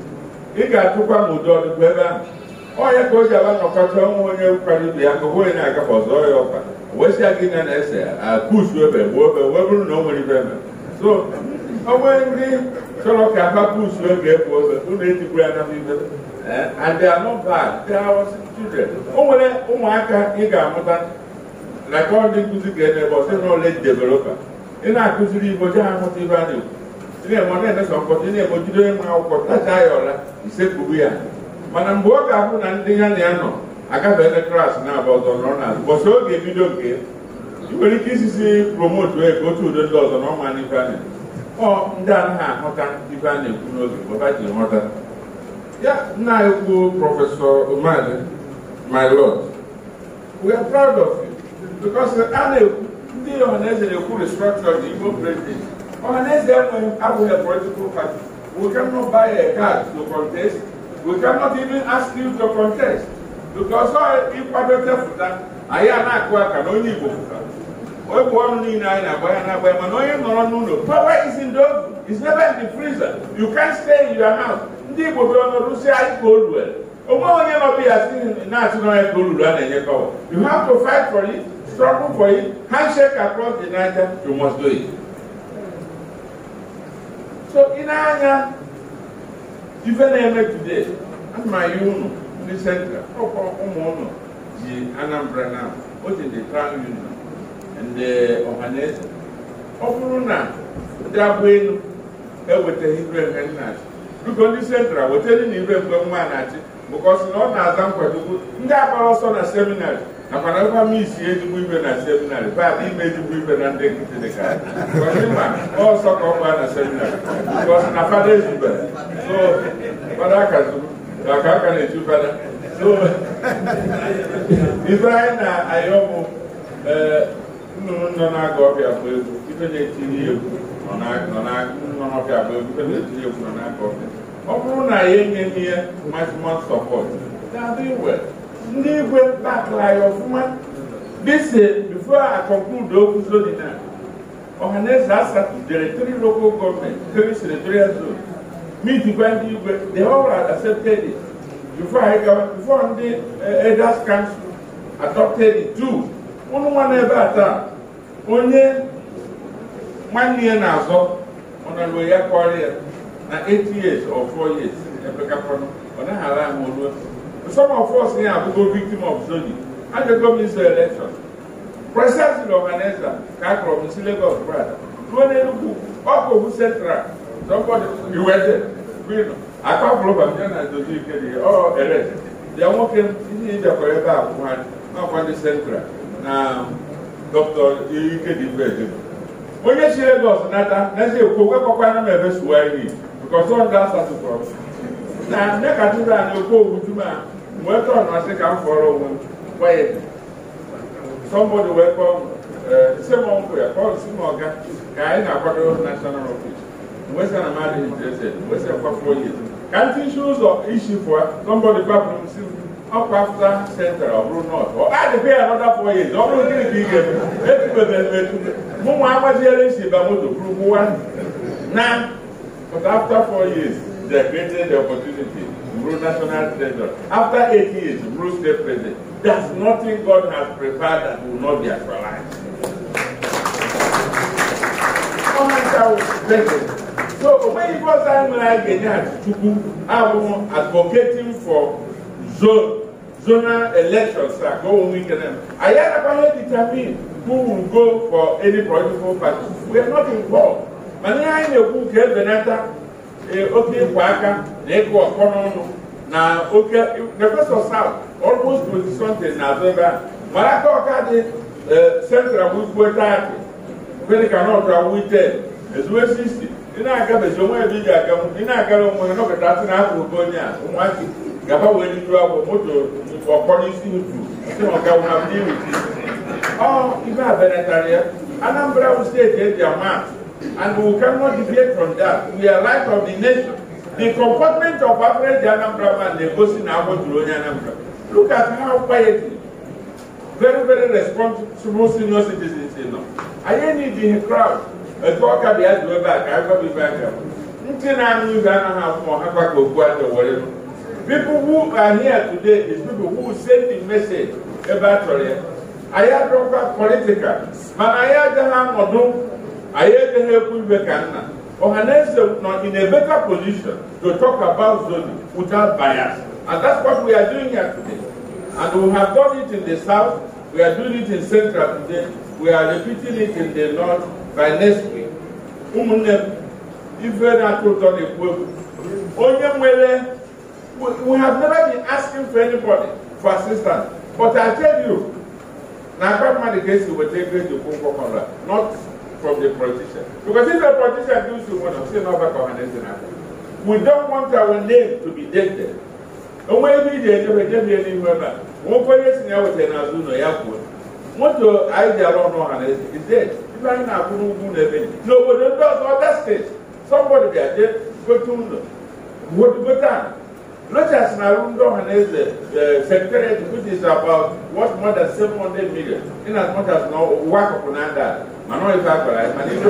ị ga-atụkwa m ụdị ọdụkọ ebe ahụ onye ka o ji aba nnọkọta ọnwụ onye kwara ibe ya ka onye na ọzọ ya ọkwa wesịa gị na na-ese akụsu ah, ebe ebe wee bụrụ na o nwere ibe eme so onwe ndị chọrọ ka ha pusu ebe egwu obe ya ibe eh, nwere ụmụaka ị ga-amụta na ka ndị nkụzi ga-eme ebe na ị na-akụziri igbo je ahụta ibe a na-ekwu ị na-eme na-emesa mkpọtụ ị na-egbojide nwa akwụkwọ tacha ya ọla isekpuru ya mana mgbe ọ ga-abụ na ndị ya na ya nọ agafeela klaasị na-aba ọzọ nọrọ n'azụ bọsị oge ebido nke ị nwere ike isisi promotu ego otu udo ndị ọzọ na ọma n'ife a ọ ndị anaghị ahụta ife a na-ekwu n'oge baba ji nghọta ya nna ekwu prọfesọ Umali my lord we are proud of you because a na-ekwu ndị ọhaneze na-ekwu restructure the Igbo president ọhaneze abụghị a political party we cannot buy a card to contest we cannot even ask you to contest because ịkwado tepụta anyị a na-akụ aka na onye Igbo egwu ọnụ niile anyị na-agba ya na mana onye nọrọ n'ụlọ power is in the is never in the freezer you can stay in your house ndị Igbo bịara anyị ka onwe onye na ka struggle for it, handshake across the Niger, you must do it. So in Anya, even eme today, and my union in the center, Omono, oh, oh, oh, the Anambra now, what is the Crown Union and the Ohanese, Ofuruna, Dabwenu, ewetaghị ire mgbe nna achị ndị sentra wetere na ire mgbe nwa na achị na ọ na-aza ndị agbara ọsọ na seminarị nakwana ebe m isi ezigbo ibe na seminarị bad ime ezigbo ibe na ndị nkịtị dị ka ma ọsọ ka ọ gbaa na seminarị na fada ezubere so fada akazuru maka aka na-eju fada so ibe anyị na-ayọ bụ eh, nnụnụ nọ na-aga ọbịa bụ egwu ibe na-etiri egwu nọ nọ n'ọbịa bụ egwu ibe na-etiri egwu nọ n'a n'aka ọbịa ọ bụrụ na ya enye m ihe maximum support na-adị well ndị igwe bakla ya ọfụma dịsi bifo a conclude okwu zodina ọhaneze asatụdere three local government three senatorial zone ndị igwe the whole had accepted it ndị eh, elders council adopted it too ụnụ nwa n'ebe a taa onye nwanne na-azọ ọnọdụ ya kọrọ ya na 8 years or 4 years ọ ala ahụ Some of us here have been victim of zoni And the government is election. Precisely organized that. Can't promise Lagos, brother. Central, somebody iwete, akpapụlụba ndị na-edozi ike dị ọ ere. Ya nwoke ndị ịbịakwara ebe a kwụ ha ndị Central na Dr. Ikedibe Ejima. Onye si Lagos nata, n'ezi ekwu wekọkwana m ebe suwa ihe, because ọ ndị asatụ na Na ndị a na-ekwu wee tọọ na-asị ka m fọrọ onwe m gwa ya sọmbọdụ wee kpọọ ise m nkwụ ya kpọọ si m ọga na-akwado national office wee sị na m adịghị interested wee sị kwafuo ya ka m tinshi ụzọ isi pụọ sọmbọdụ gbapụrụ m si m ọkwa afta sentra ọ bụrụ nọt ọ adịbe ya nọda fọ ọ bụrụ gịnị ka ị ga-eme etubebere m etube mụ to agbajiere isi na but after four years they created the opportunity pro-national treasure. After 80 years, Bruce stay president. There's nothing God has prepared that will not be actualized. so when you go Igbo Zanwere Genya Chukwu, I was advocating for zone, zonal elections that go on weekend. I had about determine who will go for any political party. We are not involved. Mani anyị na-ekwu ka ebenata oke ịkwa aka na ịkụ ọkpọ n'ọnụ na oke defesọ saut olmos pozisọnte na azụ ebe a mara aka ọka dị e, central wugbuo taati medika nọtra wute ezuwe 60 ị na-agabeji onwe ebe ị ga-aga ị na-agara onwe ha nọkọta asị na afọ oge onye a ụmụazị gaba wee n'iru agwọ moto ọkpọrọ isi utu si maka nwamdi iwuti ọ ibe a benatara ya anambra steeti eji ama And we cannot deviate from that. We are light of the nation. The comportment of average Anambra man negotiating about Tuloni Anambra. Look at how quietly, very, very responsible senior citizens, you know. I ain't need the crowd. A talker be asked to go back. I go be back. Nothing I knew that I have more. People who are here today is people who send the message about Tuloni. I had political, but I had to have anyị edeghị ekwu ibe ka nna ọhaneze nọ in a better position to talk about zoning without bias and that's what we are doing here today and we have done it in the south we are doing it in central today we are repeating it in the north by next week ụmụnne m ife na-atụ ụtọ na-ekwu egwu onye nwere we have never been asking for anybody for assistance but i tell you na akpa mmadụ ga-esi weta ego eji okwu nkwọkọrọ not from the politician. Because if the politician do so much, still not back on an We don't want our name to be tainted. And when we did, we gave any member. One person I was in Azuno Airport. What do I don't know how is dead. If I the No, but the does not that Somebody there, they go to know. What go down? Not just Narundo uh, and as the ma non le fa quella, ma li fa.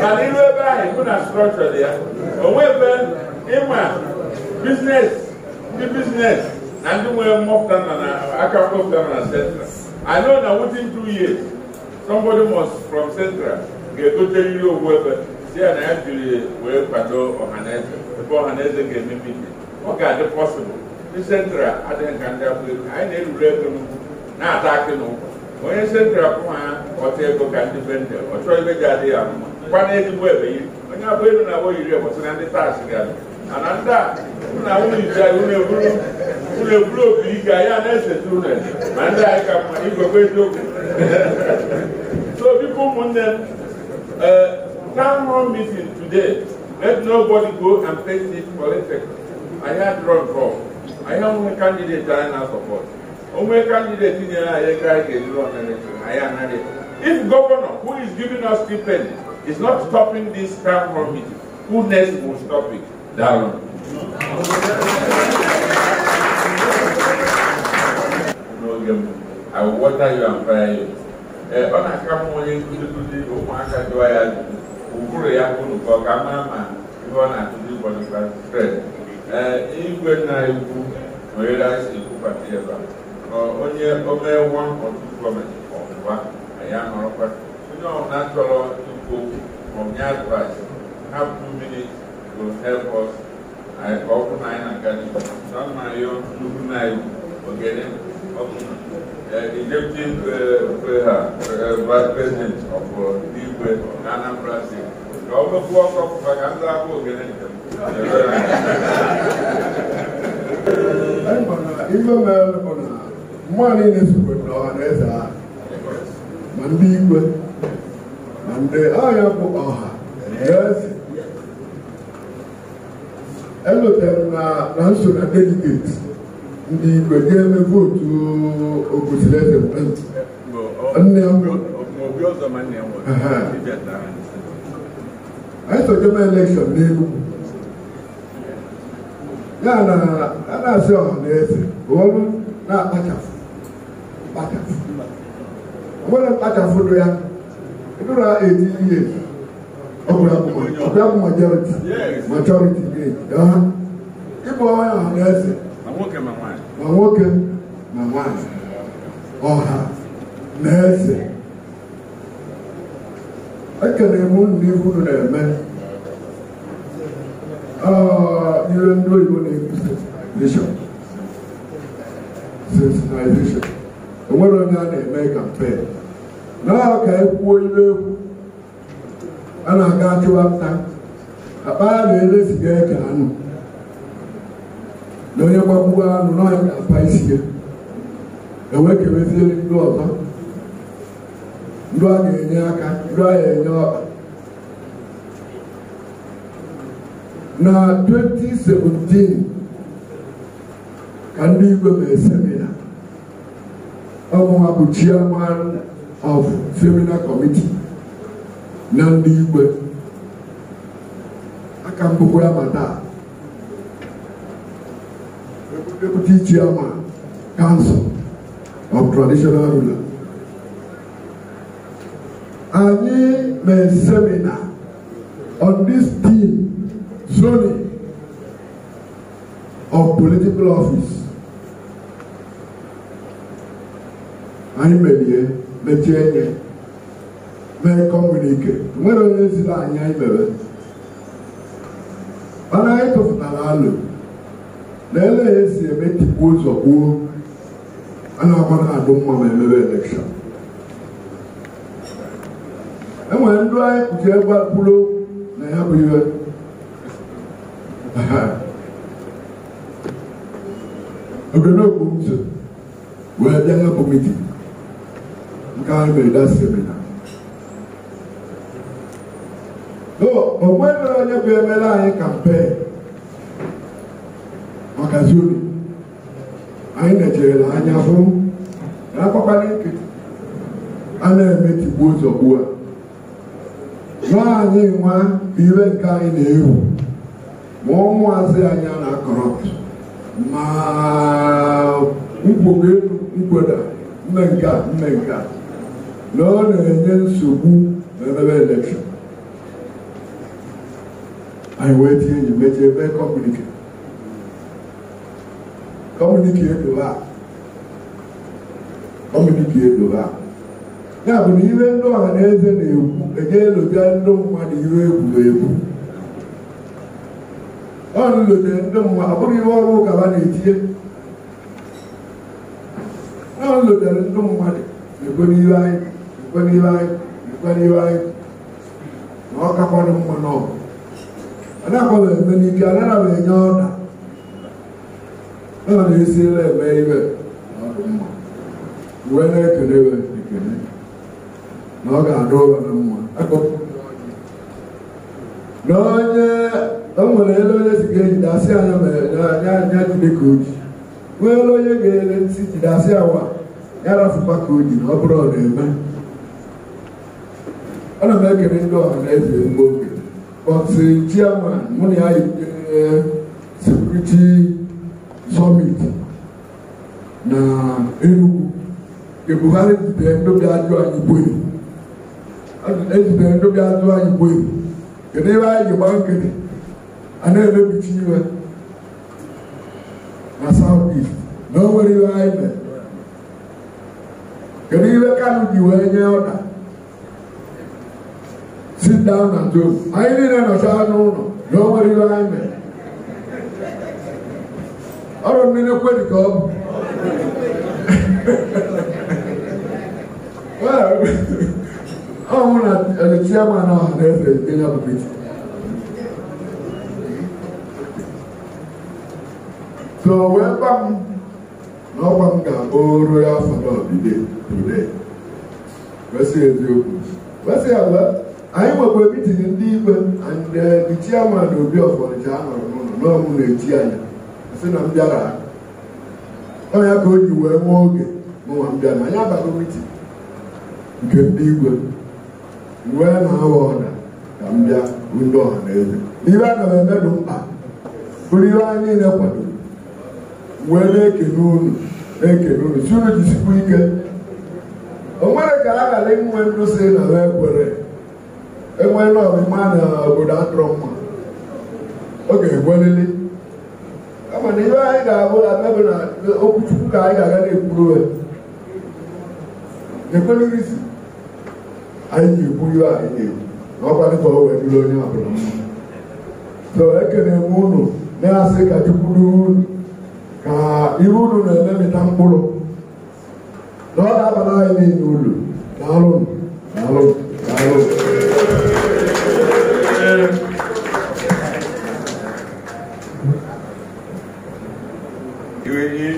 Ma li lo ba e kuna structure dia. O we be inwa business, the business and the way more than an aka more than an central. I know that within two years somebody must from central get to tell you whoever. See, and I actually will patrol Ohanese. Before Ohanese get me meeting ọ ga-adị pọsịbụl ndị sentra adịghị nka ndị abụrụ anyị na-erure ego n'ugwu na-ata akị n'ụkwụ onye sentra pụha ọta ego ka ndị be ndị ọ chọrọ ibe ji adịghị ya mma kwana ezigbo ebe yiri onye abụ elu na abụọ yiri ebọsị na ndị taasị ga-adị mana ndị a na unu iji anyị unu eburu unu eburu obi ike anyị a na-eseta unu ma ndị anyị ka mma igwekwa eziokwu so biko ụmụnne m ee eh, town hall meeting today let nobody go and face this politics anyị adịrọ nke ọ anyị onwe kandideti anyị na-asọpọt onwe kandideti nyere anyị ego anyị ga-ejiri ọnarechọn anyị anaghị if governor who is giving us stipend is not stopping this term committee who next will stop it daalụ n'oge m I will water you and fire you. ọ na-aka mma onye nkụzi nkụzi ụmụaka jụọ ya ụbụrụ ya kwuru ka ọ ga ama ma ihe ọ na-akụzi bọdụ klasị ee eh, igwe na iwu nwere asi ekwubata ebe a onye omewa ọtụtụ gọọmenti ya onye ọbụla chọrọ ikwu okwu hapụ mmiri go help us ka ọ bụrụ na anyị na-aga n'ihu sọmarịọ nnukwu na-egwu ogene na eh, eh, uh, Anambra ọ anyị na ife na mmadụ niile na ọha na ha ma ndị igwe ma ndị agha bụ ọha eze elotere m na nso na ndị ga-eme nne mbụ elekshọn n'Enugwu ya na a na-asị ọha na eze olu na-akpachapụ akpachapụ onwere mkpachapụrụ ya a eti ihe ọbụla e bụ ya. majoriti ịbụ onye ọha na eze ma nwoke ma nwaanyị ọha na eze ekele m unu n'ihu unu na-eme ihe ndị oyibo na-ekwu sensitization enwere onye a na-eme kampen naha ka ekwuo ibe egwu a na-aga achụwa nta akpa ya na-ele siga anụ na onye gbagbuo anụ n'ọnya ga-akpa isi ya enwekeweziere ndị ọzọ ndị a ga-enye aka ndị a ga-enye ọkpa na 2017 ka ndị igwe mee semina ọbụwa bụ chairman of seminar committee na ndị igwe aka mbụkwa ya ma taa deputy chairman council of traditional ruler anyị mee semina on this team dethroning of political office anyị merie mechie nye mee kọmunike nwere onye si na anyị anyị mere mana anyị tụfụtara alụ na ele ya esi eme tikpu ụzọ gbuo a na-agba na-adụ mma ma emebe elekshọn enwere ndị anyị kpuchi egwu kwuru na ya bụ ihe ogenogbu m so wee bịa nyepụ mitin nke ahụ mere da semina o nwere onye bụ emere anyị kampen maka zuru anyị na-ejerela anya hụ na akpakpara ike a na-emetigbu ụzọ ugbu a nwaanyị nwa iwe nke anyị na-ewu ma ọnwụazị anyị anya na-akọrọpụ ma nkwogelu elu mkpeda mme nke mme nke na ọ na-enye nsogbu n'emebe elekshọn anyị wee tinye enyi mechie ebe kọmunike kọmunike edobe a kọmunike ya bụ na ihe ndị ọha na eze na-ekwu enye eloja ndị mmadụ ihe egwuregwu ọrụ lote ndị mmụọ abụghị ihe ọrụ ụka ha na-etinye ọrụ lotere ndị mmadụ ekwe n'ihu anyị ekwe n'ihu anyị ekwe n'ihu anyị na ọ kakwanụ mma n'ọgụ anaghịkwa m eme n'ike anaghị m enye ọda ọ na-esirila eme ibe na ọdụ mma uwe na-ekele iwe ekele na ọ ga-adụ ụra na mma na onye enwere ele onye si ga-ejide asị anya anya Chineke oji nwee ele onye ga-ele ntị jide asị awa ya rafụkwa ka o ji ọ bụrụ ọ na-eme ana m ekele ndị ọha na eze mgbe oge bọtụ eh, chiama mụ na ya yitere eh, sekuriti sọmiti na Enugu ebughari jidere ndobi ajụ anyị gbuo ezitere ndobi ajụ anyị gbuo kedu ebe anyị ji gba nkiri a na-emebicha iwe na South East na o nwere iwe anyị mere kedu iwe Kanu ji wee nye ọda sit down na do anyị niile nọchaa n'ụlọ na o nwere iwe anyị mere ọrụ mmiri kwe ka ọ bụ ọ hụ na chiama na ọha na eze nke ya bụ so wee gwa m na ọkwa m ga-abụ royal fanọdide today kwesịrị eziokwu kwesịrị ala anyị nwekwa mitin ndị ikpe ndị eh, chiama na obi ọfọnịcha a nọrọ n'ụlọ n'ọmụ na-echi anya sị na m bịara ọnya ka o ji wee nwee oge mụnwa m bịara anyị abago mitin nke ndị igwe wee na aghọ ọda ka m bịa ndị ọha na eze n'ihe a na m eme mkpa bụrụ ihe anyị niile kwadoro wee na-ekene unu na unu si unu jisikwa ike o nwere ka a ghara inwe ndụ si na ha ekwere enwe n'ọmịma na obodo atụrụ mma ọ ga-egwelili kama na ihe anyị ga-abụ na mebe na okwuchukwu ka anyị ga-aga na-ekwuru ya ekwelerisi anyị ji-ekwu ihe anyị na-ekwu na ọkwa dịka o wee dịrị onye ọbụla so ekene m unu na-asị ka chukwu unu ka ihe unu na-ememịta mkpụrụ na ọ ga-abara anyị niile ulu daalụ daalụ daalụ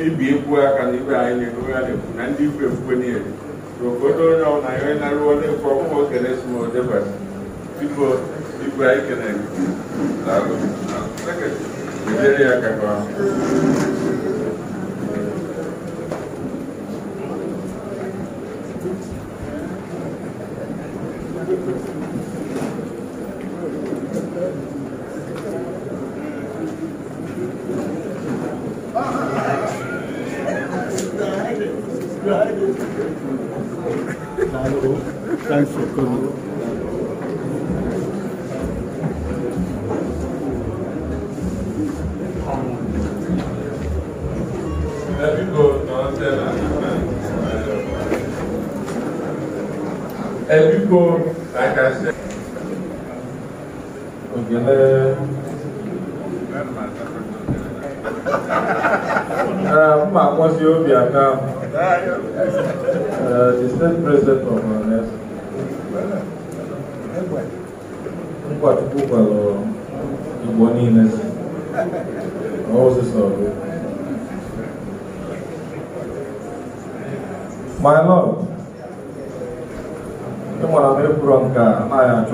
ibi ekwu aka na ibe anyị na-ekwu na-ekwu na ndị ikwu ekwukwe niile obodo onye ọbụla ya na-arụ onye kwụ ọkwụkwọ kele smodebasi biko igwe anyị kele daalụ na seketị ejere ya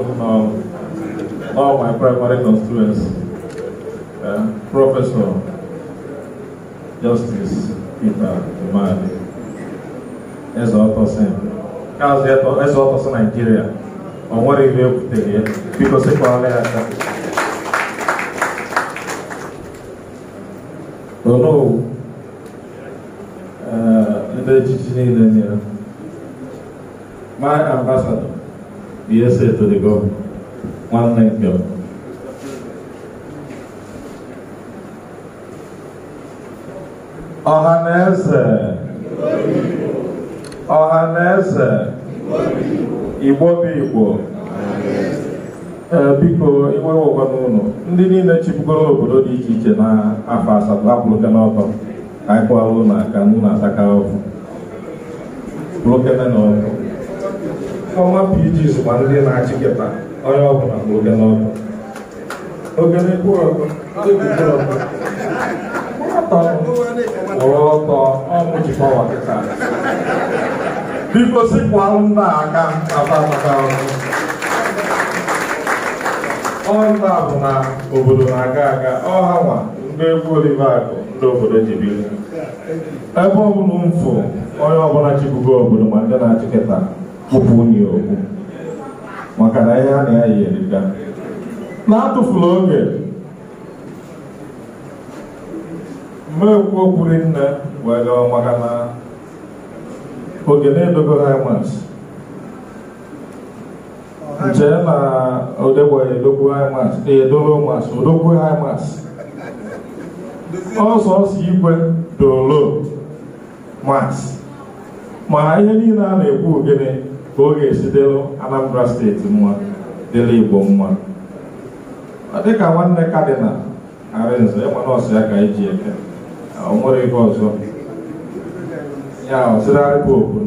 um, all my primary constituents, uh, Professor Justice Peter Imani, as Ottosen, Ezra Ottosen Nigeria, on what he will take here, because he probably has that. Hello, uh, the Chichi Nigeria. My ambassador, ihe Yes, etoligo nwanne nke ọha na eze. igbo bụ igbo ee biko iwe wụkwa n'ụlọ ndị niile chịbugoro obodo dị iche iche na afọ asatọ apụrụke n'ọtọ ka anyị kụwara ụlọ aka nụ na-ataka ọkụ pụrụkene n'ọkụ ọma PG sokwa ndị na-achịkịta onye ọbụla ma oge n'ọbụ ogene gbuọgụ ndị gbuọgụ ọtọ kwụrụ ọtọ ọmụ jikọwa kịta biko sikwa nna aka apataka ọnna bụ na obodo na-aga aga ọha nwa ndị egwu olivakụ ndị obodo ebe ọbụla mfụ onye ọbụla chibugo obodo ma ndị na-achịkịta kwupụ ya okwu maka na ihe a na-eyi erika na-atụfula oge mmekwuo kwuru nne wee gawa maka na oge na-edogo ha na odegbo edogbu mas edolo mas odogbu mas ọsọ ọsọ igwe dolo mas ma ihe niile a na-ekwu gịnị ka oge ga-esi Anambra steeti mma dịla Igbo mma ọ dịka nwanne kadịnal Arinze ịma nọọsụ ya ka eji eke o nwere ihe ọzọ ya ọzịrarị popu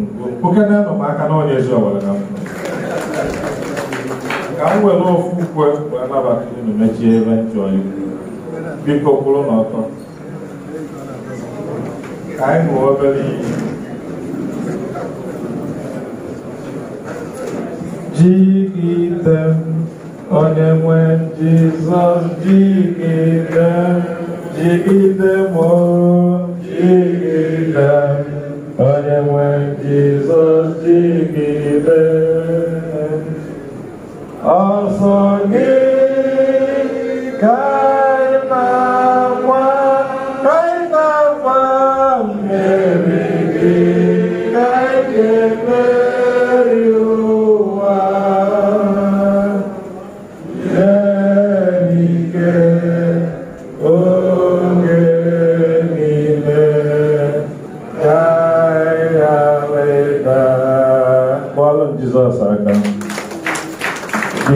okenenụ m aka na onye ezi ọwara na ka m were ofu ukwe wee nabata unu mechie ebe nchọ iwu biko kwụrụ n'ọtọ ka anyị hụ obere ihe dịgide onye nwe Jizọs dịgide dịgide m dịgide onye when Jesus dịgide ọsọ them. Also, anyị na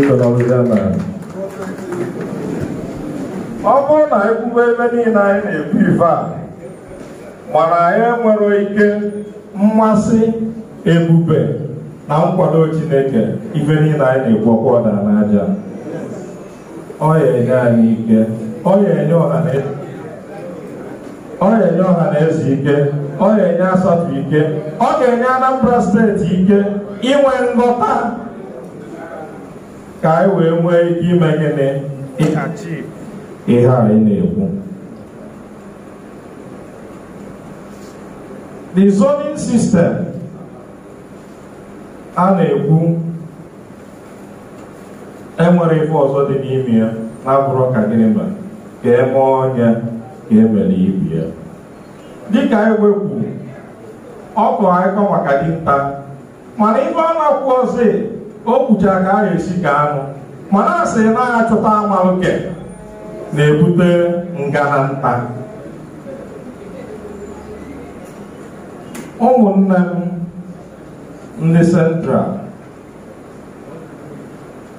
chọrọ ọbịbịa na ọ bụrụ na ekwube ebe niile anyị na-ekwu ife a mana anyị nwere ike mmasị ebube na nkwado Chineke ife niile anyị na-ekwu ọda n'aja ọ ga-enye anyị ike ọ ga-enye e, ọha na eze ike ọ ga-enye asatọ ike ọ ga-enye Anambra steeti ike inwe nghọta ka anyị wee nwee ike ime gịnị ihe anyị na-ekwu the zoning system a na-ekwu enwere ife ọzọ dị n'ime ya na-abụrụ ka gịnị ma ka eme ọnya ka emere ibu ya dịka e anyị wekwu ọ bụ anyị kọ maka dinta mana ife ọ na-akwụ ọzọ o kwuchara ka a ga-esi ka anụ mana a sị naghị achọta ama oke na-ebute ngana nta ụmụnne m ndị central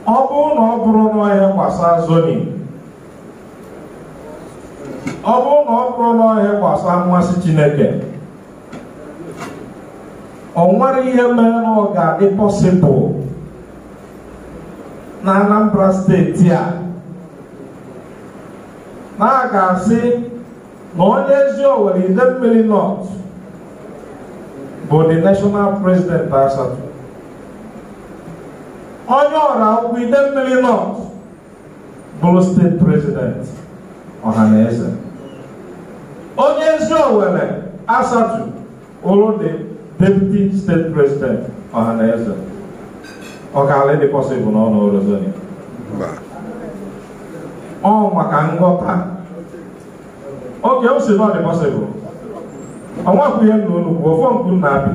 ọ bụrụ na ọ bụrụ n'ọhịa gbasa zoni ọ bụrụ na ọ bụrụ n'ọhịa gbasa mmasị chineke ọ nwere ihe mere na ọ ga-adị pọsịbụl na Anambra steeti a na a ga-asị na onye ezi Owerri mmiri nọt bụ the national president Asatọ onye ọra ide mmiri nọt bụrụ steeti president Ọhaneze onye ezi Owerri Asatọ bụrụ dị deputy steeti president Ọhaneze Ọ ọkala dị pọsịbụl n'ọnụ Rosario ọ maka nghọta Oge o si na ọ dị pọsịbụl ọnwakwụ ihe nna unu kwuo ofe mkpu nna abị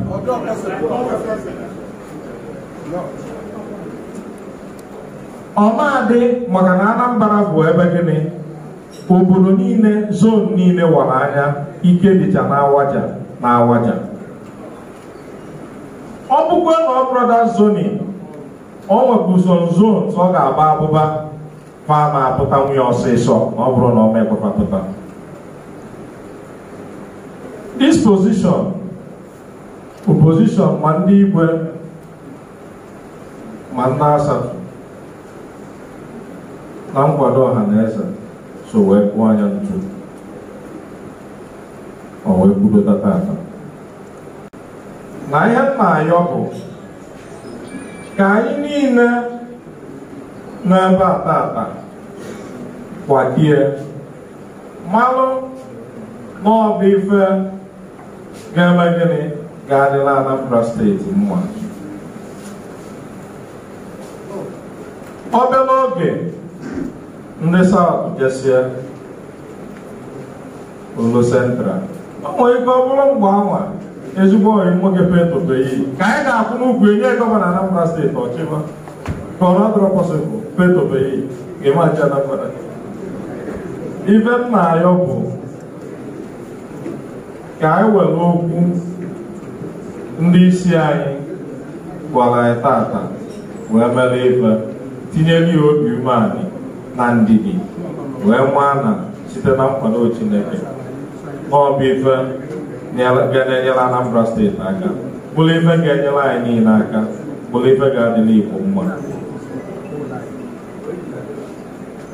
ọ na-adị maka na Anambra bụ ebe gịnị obodo niile zon niile wara anya ike dịcha na awaja ọ bụkwa na ọ brọda zonin o nwekwa uso nzu ọ ga-agba abụba fa na-apụta nwunye ọsịsọ ma ọ bụrụ na ọ mekwepapụta disposition opposition ma ndị igwe ma ndị asatọ na nkwado ọha na eze so wee kpụọ anya ntu o wee kwudo tata na ihe m na-ayọ bụ ka anyị niile n'ebe atata akpa kwadie malụ na ife ga-eme gịnị ga-adịla Anambra steeti mma obere oge ndị South jesie Olo Central o nwere ike ọ bụrụ mgbe anwa ezigbo oyi nwoke petopei ka anyị ga-akwụ n'ugwu enye gọvanọ Anambra steeti ọchịma ka ọ nọdụrụ pọsịbụl petopei ga-emachi Anambra ife m na-ayọ bụ ka anyị were okwu ndị isi anyị gwara anyị tata wee mere ife tinyere ya obi umeanị na ndidi wee maa na site na nkwado Chineke n'ọbụ ife bịa na-enyere Anambra steeti aka bụrụ ife ga-enyere anyị niile aka bụrụ ife ga-adịla Igbo mma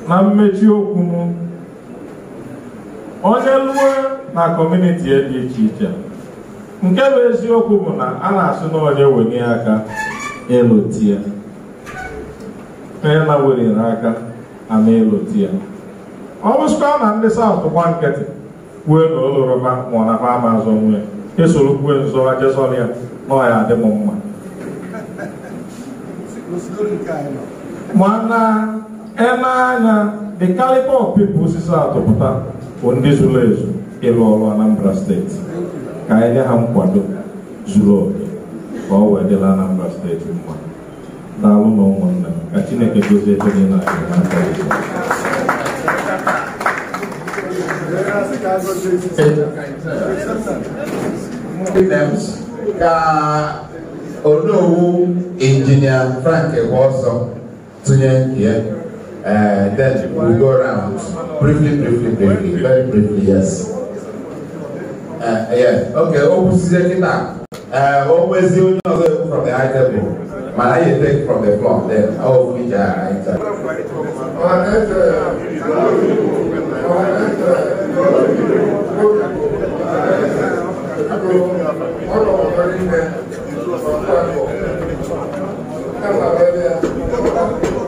na mmechi okwu m onye luo na kọmuniti e dị iche iche nke bụ eziokwu bụ na a na asị na onye wenye aka ya. onye na-werere aka ama na ya. ọ bụsịkwa na ndị South gba nkịtị kwue na ụlọrọma ma ọ na ama ama azọ nwe ya e esoro kwue nzọ ajezọrọ ya na ọ ya adị m mma mana eme anya the caliber of people osisi atụpụta bụ ndị zuru ezu ịlụ ọrụ Anambra steeti ka anyị nye ha nkwado zuru oke ka ọ wee dịla Anambra steeti mma daalụ na ụmụnne m ka Chineke gozie ebe dị niile anyị n'aka oh no! Engineer Frank ọzọ tụnye nke ya then we go round briefly briefly briefly very briefly yes uh, yeah okay o kwụsịzie kịta o nwezi onye ọzọ ekwu from the high table mana I take from the floor then ọ bụ ije anyị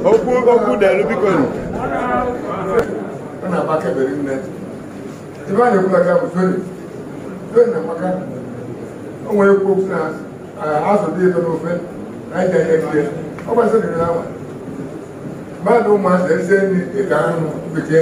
okwu okwu dịalụ biko na-ekwu bụ na amaka okwu na azụ dị n'ofe na ịja ndị ọ gbasịrị na awa mmadụ ụmụazị ahụ ya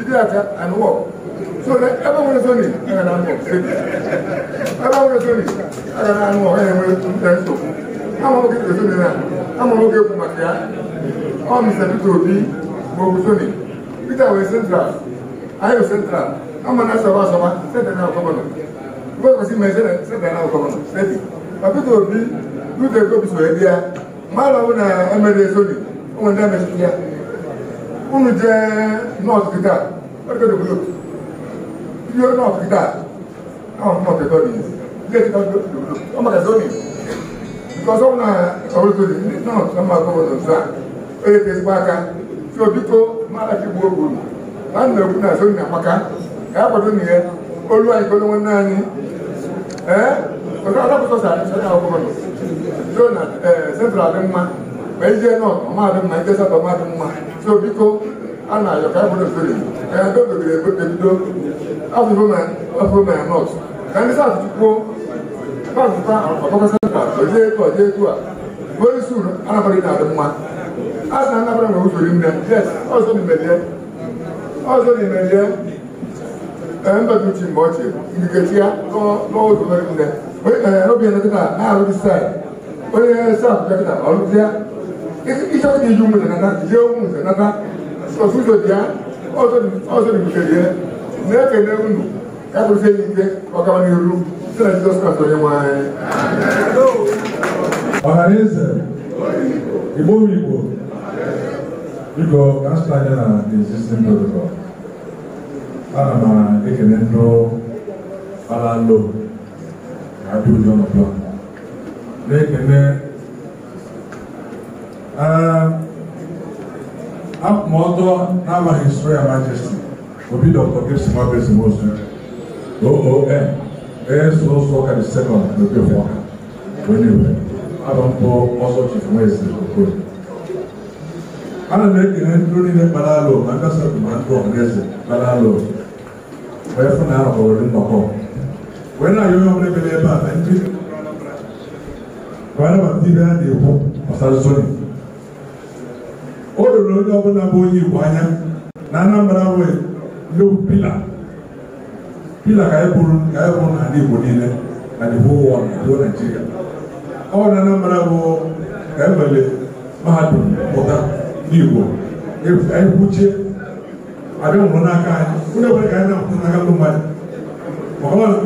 Jidiyaka and work. So that everyone is only and I'm work. Everyone is only and I'm work. And we're going to I'm going to get the now. I'm going to get my car. All Mr. Tito B. Bobusoni. Peter was central. I was central. I'm an answer was someone. Said that now, come on. Because I see my son, said that now, come on. Said it. But Tito B. Do the go to India. Mala una MD Sony. One damage here unu uh, jee north gida where go dey blow you go north gida now i'm not a dog is late don go to blow i'm not a dog is eh? because ọmọ náà ọ̀rọ̀ tó di náà tó máa gbọ́ ọ̀dọ̀ sáà ó yẹ kí ezigbo aka tí obi tó máa láti gbuo gbòòrò náà nà egwu náà sóyún àmaka ẹ akwado nìyẹ olu anyị kpọrọ nwanne anyị ee ọzọ adapụtọ sara ndị ọzọ ma ije na ọka mmadụ mma ije saba mmadụ mma so biko a na-ayọ ka bụrụ ebe ebido afụfụma ya nọt ka ndị sas kwuo pazụta ọkọkọ senta oje etu oje etu a onye isi anabara ị na-adị mma a na anabara na usori nne yes ọzọ n'imelie ọzọ n'imelie mgbe ọchị ya n'ụzọ nne onye obi ya na-alụ dị isa di ju mun nana ye mun nana sɔsu dɔ diya ɔsɔ di ɔsɔ di muso diɛ ne kɛ ne mun do k'a bɛ se nin kɛ wa kaba ni yoro sɛnɛ ti dɔ sɔrɔ sɔrɔ ye wa ye. ọhaneze igbo igbo biko ka nsọ anya na existing protocol ana m ekele ndụ gbara lo na adị ụjọ n'ụjọ na-ekele ma ọtọ n'amaghị his royal majesty obi dr gibson mabrisi mosu oon as also ọka the second n'oge fọ ọka onye iwe abụ mpụ ọsọ chief nwezi okoro ana m ekele ndị niile kpara alụ ma ndị asatọ ma ndị ọhaneze kpara alụ wee fụ na ahụ hụrụ nnọkọ wee na-ayọ onye ọbụla ebere ebe a na ndị kwana ma ndị ibe ha na-ekwu gbasara zoni lere onye ọbụla bụ onye Igbo anya na Anambra nwee low pila pila ka anyị na n'ala Igbo niile na the ụwa world na whole Nigeria ọ na Anambra bụ ka e mahadum pụta n'Igbo e, anyị kwuchie abịa nwụrụ n'aka anyị onye ọbụla ka anyị na n'aka mmadụ na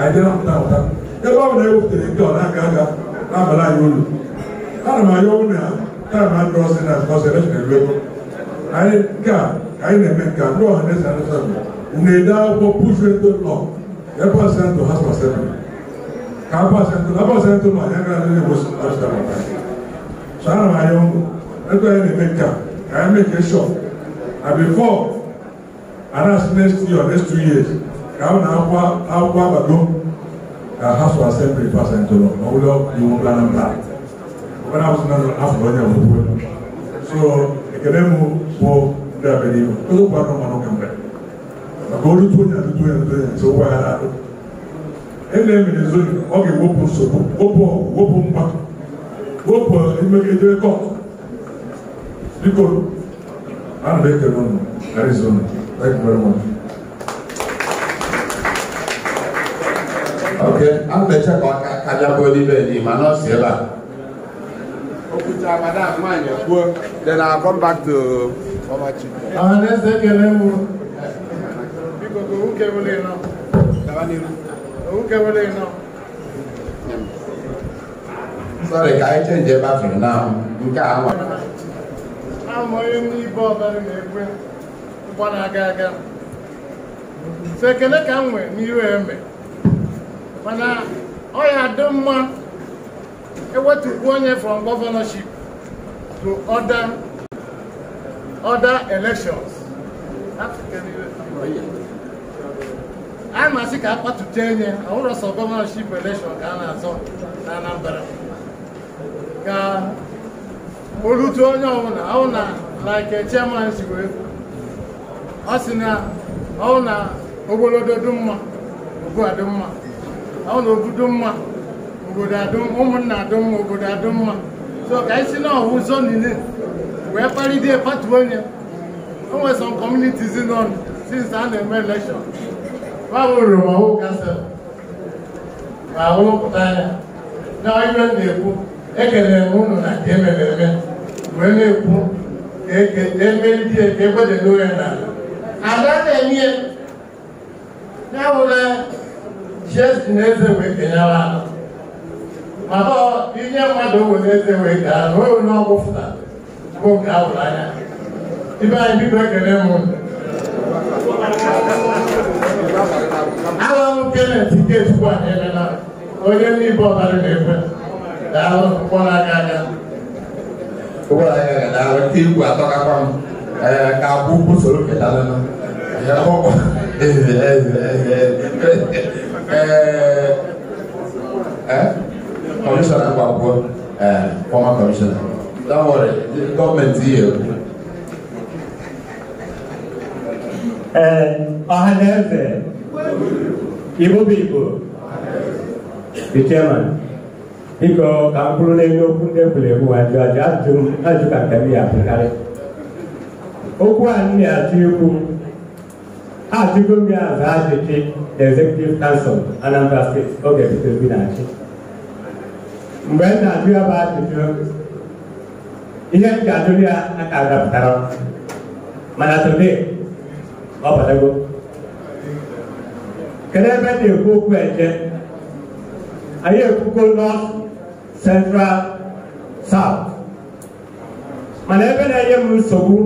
anyị na-apụta apụta ebe ọ bụla nke ọ na-aka aga na olu ana m kaa maa dɔɔ sɛ na kɔsɛ ne fɛ lɛ ko ayi kaa ayi na mɛ kaa dɔɔ ne sɛ ne sɛ mo ne da ko pusu to lɔ ne ba sɛ to ha sɔ sɛ mo kaa ba sɛ to na ba sɛ to ma ne ka ne ko a sɛ mo sɔ na ma yɛ mo ne next year next two years kaa na akɔ akɔ abadɔ ka ha sɔ asɛ mo ne ba sɛ to lɔ na wuli ɔ ni mo bila na when I was not half brother of the So, Ekelemu for the Avenue, Kolo Pano Mano Kamba. Agolu to do Tunya, so why I had I'm Ele mi le zoni, ọkè wọ́pọ̀ sọ̀rọ̀, wọ́pọ̀ wọ́pọ̀ mpa, wọ́pọ̀ ìmẹ̀kẹ̀dẹ̀ kọ̀, bíkọ̀ ánà bẹ́ẹ̀ kẹ̀ lọ́nà, Arizona, thank I'm very much. Okay, I'm the check on Kajabodi Bedi, Manos Yela. Then I'll come back to Omachi. Sorry, let's take a level. Because who came now? Who came away now? Sorry, can I change your bathroom now? You can't. I'm only So, can I come with You and me. Mana, oh, yeah, I don't want. ewetupu onye from governorship to other other elections a na-asị ka akpatụta enye ọhụrụ sọ gọvanọship elekshọn ka a na-azọ na Anambra ka olutu onye ọbụla ahụ na like chairman si wee ọ sị na ọhụ na ogologo dị mma ogo dị mma ọhụ na ogudu mma obodo adụm ụmụnna adụm obodo adụm mma so ka anyị si na ọhụ ụzọ niile wee kparịdie patuo onye o nwere some communities nọ since a na-eme election babụrụ ma ahụ kasa ma ahụ pụta anya na ibe m na-ekwu ekele m ụnụ na nke emere eme wee na-ekwu e ka emeri di e ka egwedelo ya n'ala ada e. na-enye ya ya bụla na eze wee kenyawa anọ mana inye mmadụ were eze wee gaa na onwe ọgwụ bụ nke ahụrụ anya ibe anyị bido ekele m ahụ m kenet nke chukwu anyị onye n'ibe ọbara na-ekwe daalụ mkpọrọ aka aka igwe atọkakwa m ka akwụ ụkwụ soro ketalụ ee Commissioner Akubakwo, uh, eh, former commissioner. Don't worry, the government is here. Eh, Ọhaneze, Igbo Igbo, the chairman, biko ka m bụrụ n'elu okwu ndị egwuregwu ajụ ajụ ajụ ka nke m ya abụkarị okwu a m na-achọ ikwu ajụgo m executive council Anambra State oge bute obi na mgbe m na-ajụ ya bụ ajụjụ ihe m ga-ajụrụ ya aka adapụtara mana today ọ batago kedu ebe na-ekwu okwu eje anyị ekwugo north central south mana ebe na-enye m nsogbu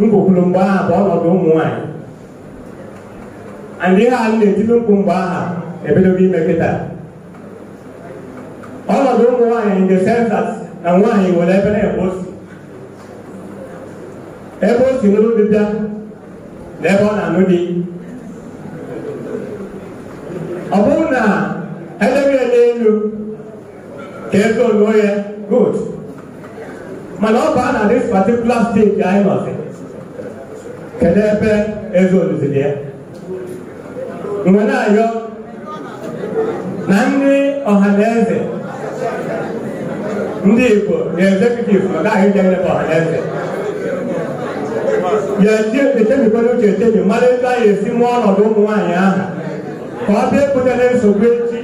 ngwukwuru mgbe aha bụ ọnọdụ ụmụ nwaanyị and ihe a na-etili mkpu mgbe aha ebidogo ime kịta ọ nọdụ ụmụ nwaanyị nke the na nwanyị nwere ebe na-ebe ebe o si n'ụlọ dịbịa na ebe ọ na-anụ di ọ bụrụ na edebe ya n'elu ka ego oluo ya good mana ọ bụ baa na dis particular stage anyị nọzi kedu ebe eze ya mgbe na-ayọ na nri ọha na eze ndị Igbo na-ezekutivu ọ gaghị je eleba ọhaneze yezi echebikwara uche echebi mara ebe anyị esi mụọ ọnọdụ ụmụ nwaanyị ahụ ka ọ bịa ebutela nsogbu echi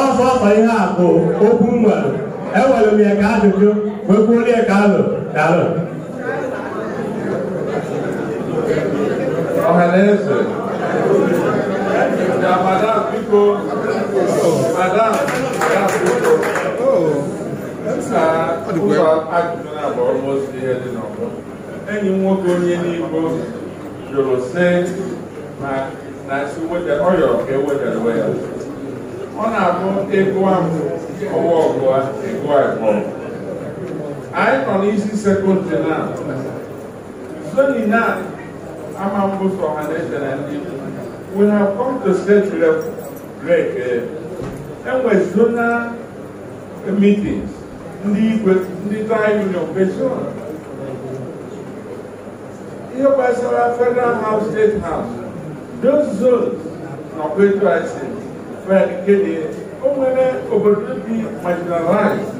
ọsọ ọsọ ihe a bụ okwu nwere ewere m ya ka ajụjụ wee kwuorie ka alụ dalụ ọhaneze madam biko madam enyi m nwoke onye n'igbo jụrụ sị na ọ yọrọ ka e ya ọ na-abụ ịgụa ahụ ọwa ọgụa ịgụa ịgụọ anyị nọ n'isi sekọndịrị na zoni na ama mbụsọ ọha na eche na ndị we have come to state level break eh, enwe zona meetings ndị igwe ndị taị union kpechie ihe gbasara federal house state house those zones na kwetu ase fed kede o nwere obodo dị marginalized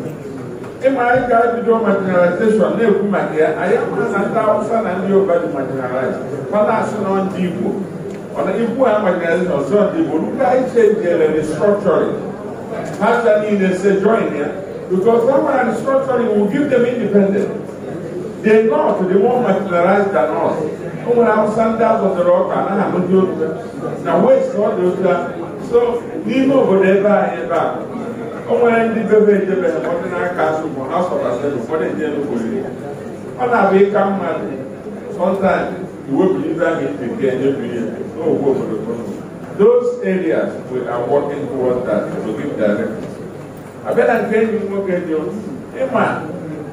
ịma anyị ga-ebido marginalization na-ekwu maka ya anyị ama na ndị awụsa na ndị yoruba dị marginalized mana asị na ndị igbo ọna ikwu ha marginalization ọzọ ndị igbo ruka anyị chenjere restructuring ha niile se join ya Because someone restructuring will give them independence. They're not, they won't marginalize than us. Someone else stand out on the rock and I'm na to Now, where's all those that? So, leave over there by and back. Onwere ndị bebe edebe ụfọdụ n'aka azụ bụ ha sọbasịrị ụfọdụ ndị enukwuriri. Ọ na-abụ ịka mmadụ sọntan iwepụrụ ibe ahụ ibe nke enyebiri obodo. Those areas we are working towards that abịa na nke enyi m nwoke dị ịma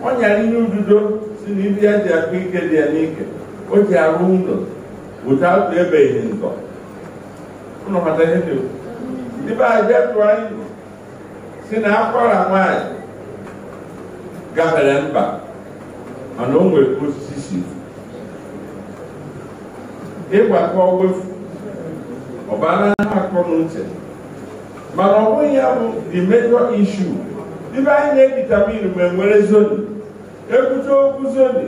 ọ ihe ududo si na ibi ya ji ike dị ya n'ike o ji arụ ụlọ bụta atụ ebeghị nkọ ụlọ mata ihe dị ndị be anyị bịa tụọ anyị si na akwara nwaanyị gafere mba mana o nwere osisi si ịgbakọ wefu ọbara akọ na uche mana ọ bụghị ya bụ the major issue ibe anyị na-editamin ma nwere zoni ekwute okwu zoni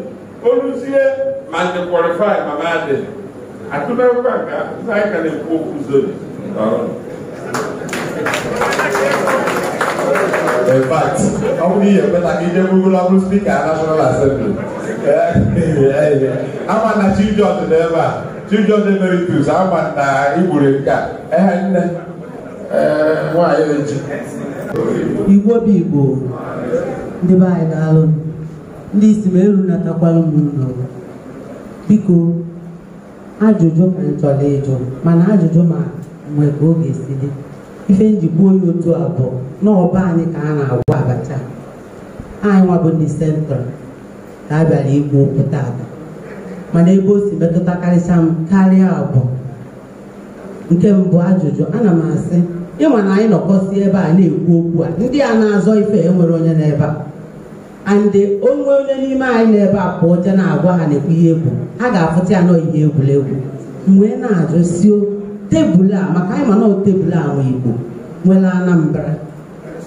oluzie ma ndị kwalifi ma madị atụmekwa nke anyị na-ekwu okwu zoni ọ bụ ihe ka ije bụ spika National Assembly. Eh, ama na chijọd n'ebe a chijọd emeritus igbo obi igbo ndị be anyị na-alụ ndị isi ma eru natakwala ụmụnna biko ajụjụ ma m chọrọ ịjụ mana ajụjụ ma mgbe oge ọ dị ife njikwa onye otu abụọ n'ọba anyị ka a na-agwa abacha anyị nwabụ ndị sentrọl ka a bịara igbu okwu Ada, mana ebe o si metụta karịcha m karịa abụọ nke mbụ ajụjụ ana m asị ịma na anyị nọkọsi ebe a na-ekwu okwu a ndị a na-azọ ife enwere onye n'ebe a andị onwe onye n'ime anyị n'ebe a pụọ je na-agwa ha na-ekwu ihe egwu ha ga-afụta ya nọọ ihe egwuregwu mgbe na-ajụ si tebụl a maka anyị ma tebụl a nwe igbo nwere anambra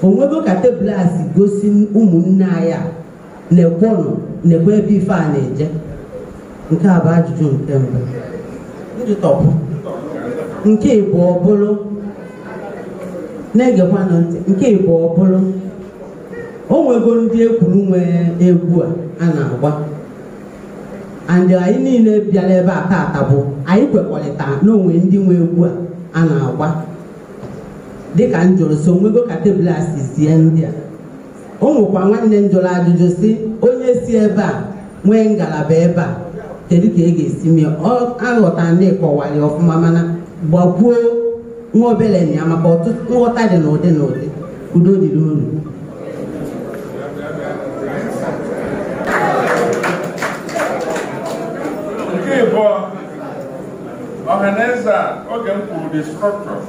onwego ka tebụl a si gosi ụmụnne anyị a na-ekwonụ na-ekwe ebe ife a na-eje nke a bụ ajụjụ nke mbụ nke ịbụ ọ bụrụ na-egekwanụ ntị nke Igbo ọ bụrụ o nwego ndị ekwuru nwe egwu a a na-agba andị anyị niile bịara ebe a taata bụ anyị kwekọrịta n'onwe ndị nwe egwu a a na-agba dịka njụrụ so nwego ka tebụl a sie ndị a o nwekwa nwanne m jụrụ ajụjụ si onye si ebe a nwee ngalaba ebe a kedu ka ị e ga-esi mee aghọta ndị kọwara ọfụma mana gbakwuo nwa obele na ya maka ọtụtụ nghọta dị n'ụdị n'ụdị udo dị unu nke ịbụọ ọhaneze a oge m kwuru the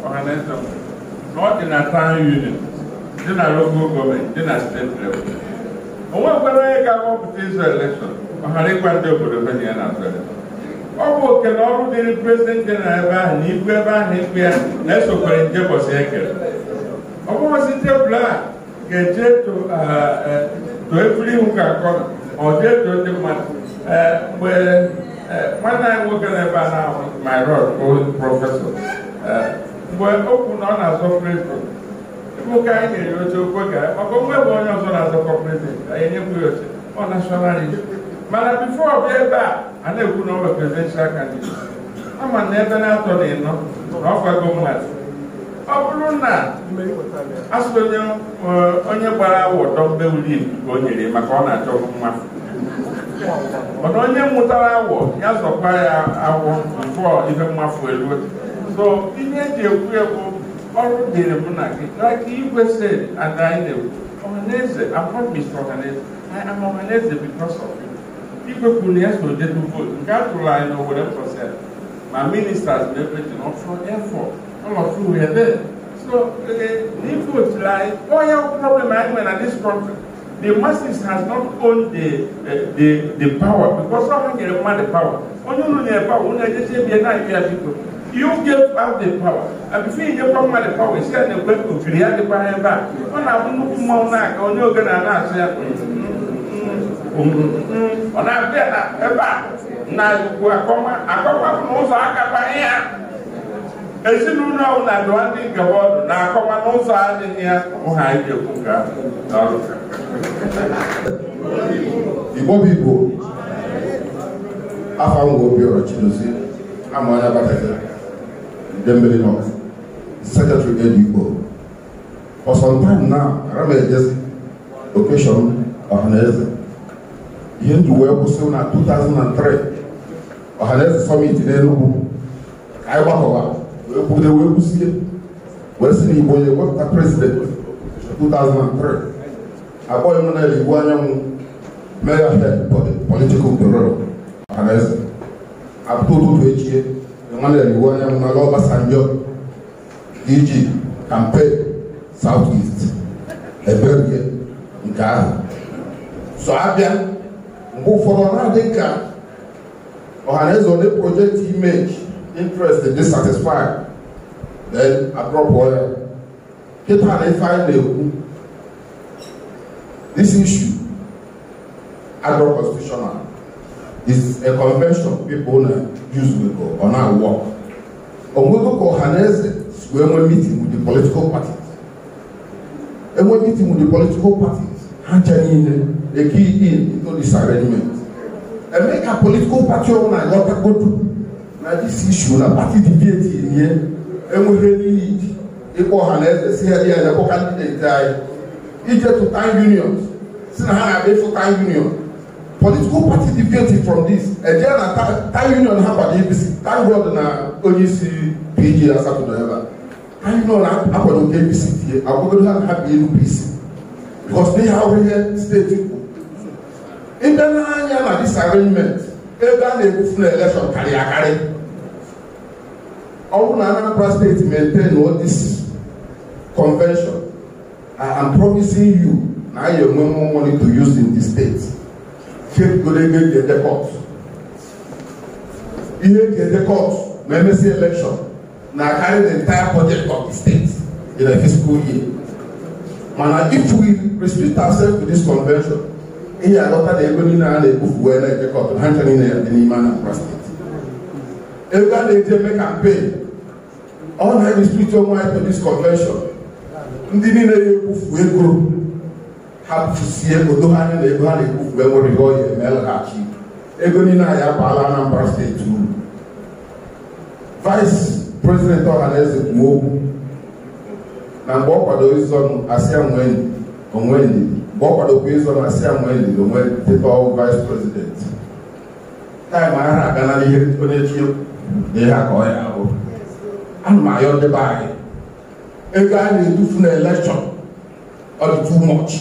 ọhaneze na ọ dị na ụdị unit dị na local gọọmenti dị na steeti o ga-akpọpụta izu elekshọn ọhara ịgwa ndị obodo na azụ ọ bụ oke na ọrụ dịrị prezident dị na ebe ahụ na ibu ebe ahụ ikpe ya na-esokwere nje ụbọchị ekere ọ bụghịzi tebụl a ga-eje too e, efere ihu ka akọ ọ jee too ndị mmadụ e, mgbe e, nwanne anyị nwoke na ebe a na-ahụ myrod bụ prọfesọ mgbe o kwu na ọ na-azọ prezident bụ ka anyị nyere oche okwe ga maka onwe bụ onye ọzọ na-azọkọ prezident anyị nyekwu ya oche ọ nashọnalist mana bifo ọ bịa ebe a a na-ekwu na ọ bụ presidential candidate ama na ebe na-atọ na ịnọ na ọkwa gọọmenti ọ bụrụ na asụ eh, onye gbara awọ uli ka o nyere maka ọ na-achọ mma mana onye mụtara awọ ya zọkwa ya awọ mfọ ife mmafu elu so ihe eji ekwu ekwu ọrụ dịrị mụ na gị ka igwe ada anyị na-ekwu ọhaneze abụọ mr ọhaneze I am ọhaneze because of ikpekwu na ya so detu vootu nke a tụrụ anyị n'Owerre process ma ministers na everything all of ọlọfụ wee there so n'ivotu anyị onye problem anyị na this country the masses has not owned the, uh, the, the power because someone can demand the power. onye you the power, onye just say be not people. You give out the power. And if you give out the power, you said the the power back. When I want to ọ na-abịa na ebe a na ugwu akọma akọma bụ n'ụzọ akapanye ya ezinụlọ na dụwa ndị ngaba ọdụ na akọma n'ụzọ adịghị ya ha iji okwu nke ahụ Igbo bụ Igbo afọ ngwa Obiọra Chidozie ama onye agbataghị ndị mmiri nọ secretary ed Igbo for some time now ara m ejezi okeshọn ọhaneze hindu wee kwụsị na 2003 ọhaneze summit n'enugwu anyị gbakọwa wee kwude wee kwụsie wee si na igbo onye wepụta prezident 2003 akpọghị m na igbo anyanwụ mere ahịa political bureau ọhaneze apụta ụtụtụ echie nwanne igbo anyanwụ na ala ọbasanjọ iji campaign south east eberie nke ahụ so abịa mgbe ụfọdụ ọ na-adị ka ọhaneze project image interest dissatisfied then adrọpụ ya kịta na ife anyị this issue adrọ constitutional is a convention people na use wego ọ na-awọ onwego ka ọhaneze si wee meeting with the political parties enwe meeting with the political parties ha ncha niile the key in into this arrangement and make our political party una yọta godu na this issue na party debate yie enweghị n'iyi ịkpọ ọha na eze si heli anyị na-akpọ kandideti anyị ije to time union si na ha na-abịa ịfụ time union political party deviated from this eje na time union ha kwado apc thank god na onye isi pg na saturday ebe a time uh, union akwado nke apc tie agwagodo ha na ha bi elu pc because they have ihe state ịbịa n'anya na disagreement ebe a na-ebufu na elekshọn karịa akarị ọ bụrụ na Anambra steeti maintain all this convention I am promising you na anyị enwe more money to use in the state faith golege the edekọt ihe the edekọt ma emesi elekshọn na carry the entire budget of the state in a fiscal year mana if we respect ourselves to this convention ihe alọta na ego niile a na-ebufu wee na-ekekọta ha ncha niile ya dị n'ime Anambra steeti ego a na-eji eme kampen ọ na-eristrikti onwe anyị police convention ndị niile ya ebufu ego ha bufusie odo ha anya na ego ha na-ebufu enwere ihe ọ ya emelaghachi ego niile anyị abaala Anambra steeti uru vice president ọhaneze kwuo okwu na mgbe ọ kwadoro ịzọnụ asị ya onwe onwe ndidi wọ́n padà pé sọ́nà sí àwọn ènìyàn ló wọ́n ti tọ́ vice president táìmù ara àgánà ihe ó na-echi ihe aka ọ ya ahụ ana m ayọ ndị be anyị ego a na-edufu na elekshọn ọ dị too much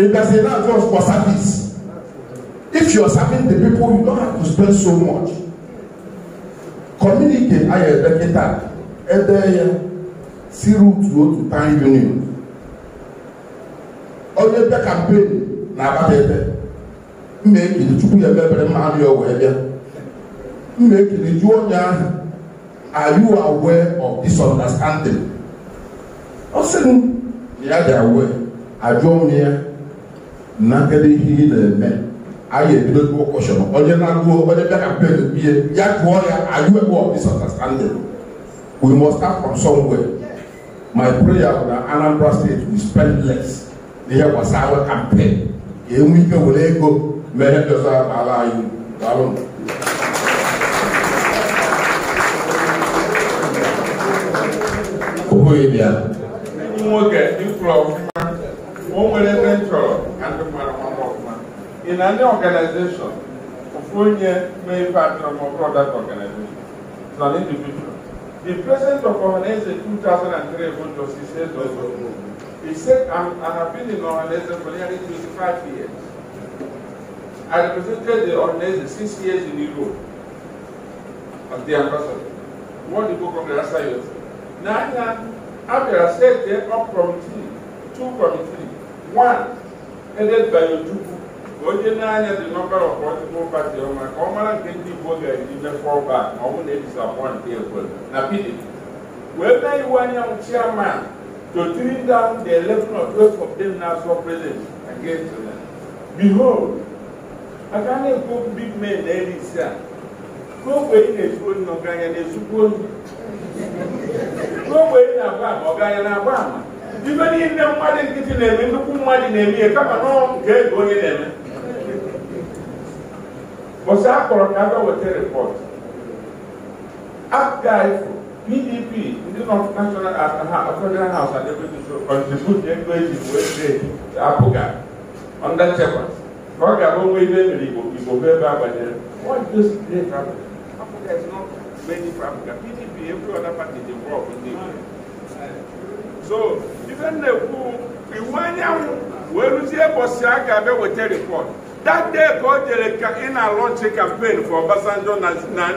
ịbịazi na atụ for service if you are serving the people you don't have to spend so much Communicate. ayọ ebe kịta ede ya si rutu to time union onye bịa kampenu na abata ebe mma ekele chukwu ya emebere mma anụ ya wee bịa mma ekele jụọ onye ahụ are you of this ọ sị m ya dị awe ajụọ m ya na kedu ihe ị na-eme a ga-ebido onye na-agụọ onye bịa kampen bie ya jụọ ya are you aware of this we must start from somewhere my prayer na Anambra State we spend less ihe gbasara kampen ga-enwe ike were ego mee doza ala anyị daalụ oboghị bịa nwoke ifụrụ ọfụma o nwere ebe m chọrọ ka ndị mmadụ mama ọfụma ị na ndị ọganizeshọn ofu onye mee ife atụrụmọbụrụ dat ọganizeshọn nọ n'individual the president of ọhaneze 2003 bụ Justice Ezeozo He said, I'm, I have been in Oranese for nearly 25 years. I represented the Oranese six years in Europe as the ambassador. What did go of the last years? Now, I have said there are committee, two committees. One, headed by Ojubu, onye na the number of political party ọma ka ọ mara nke ndị Igbo ga-eji mefọọ back ma ọ bụ na-edisapọntị ekwere na PDP. Wee mee iwu anyanwụ chairman to trim down the election of those of them national against them. Behold, a ka na-ekwu ndị mmee na-erisi a ka na na-agba ama ọ ganya na-agba ibe niile nkịtị na-eme nnukwu mmadụ na-eme ihe ego onye na-eme bọsa ka aga weta rịpọt apụga PDP ndị nọ national federal house adịbụghị so kọntribut ego eji wee dee apụga ọnda nchekwa ka ọ ga-abụ onwe ihe mere igbo igbo bụ ebe agbanyere PDP every other party dey involve ndị igbo so ife na-ekwu iwu anyanwụ wee rụzie bọsị a ga-abịa weta report that day ka o jere ka ị na-alọnchi campaign for Obasanjo na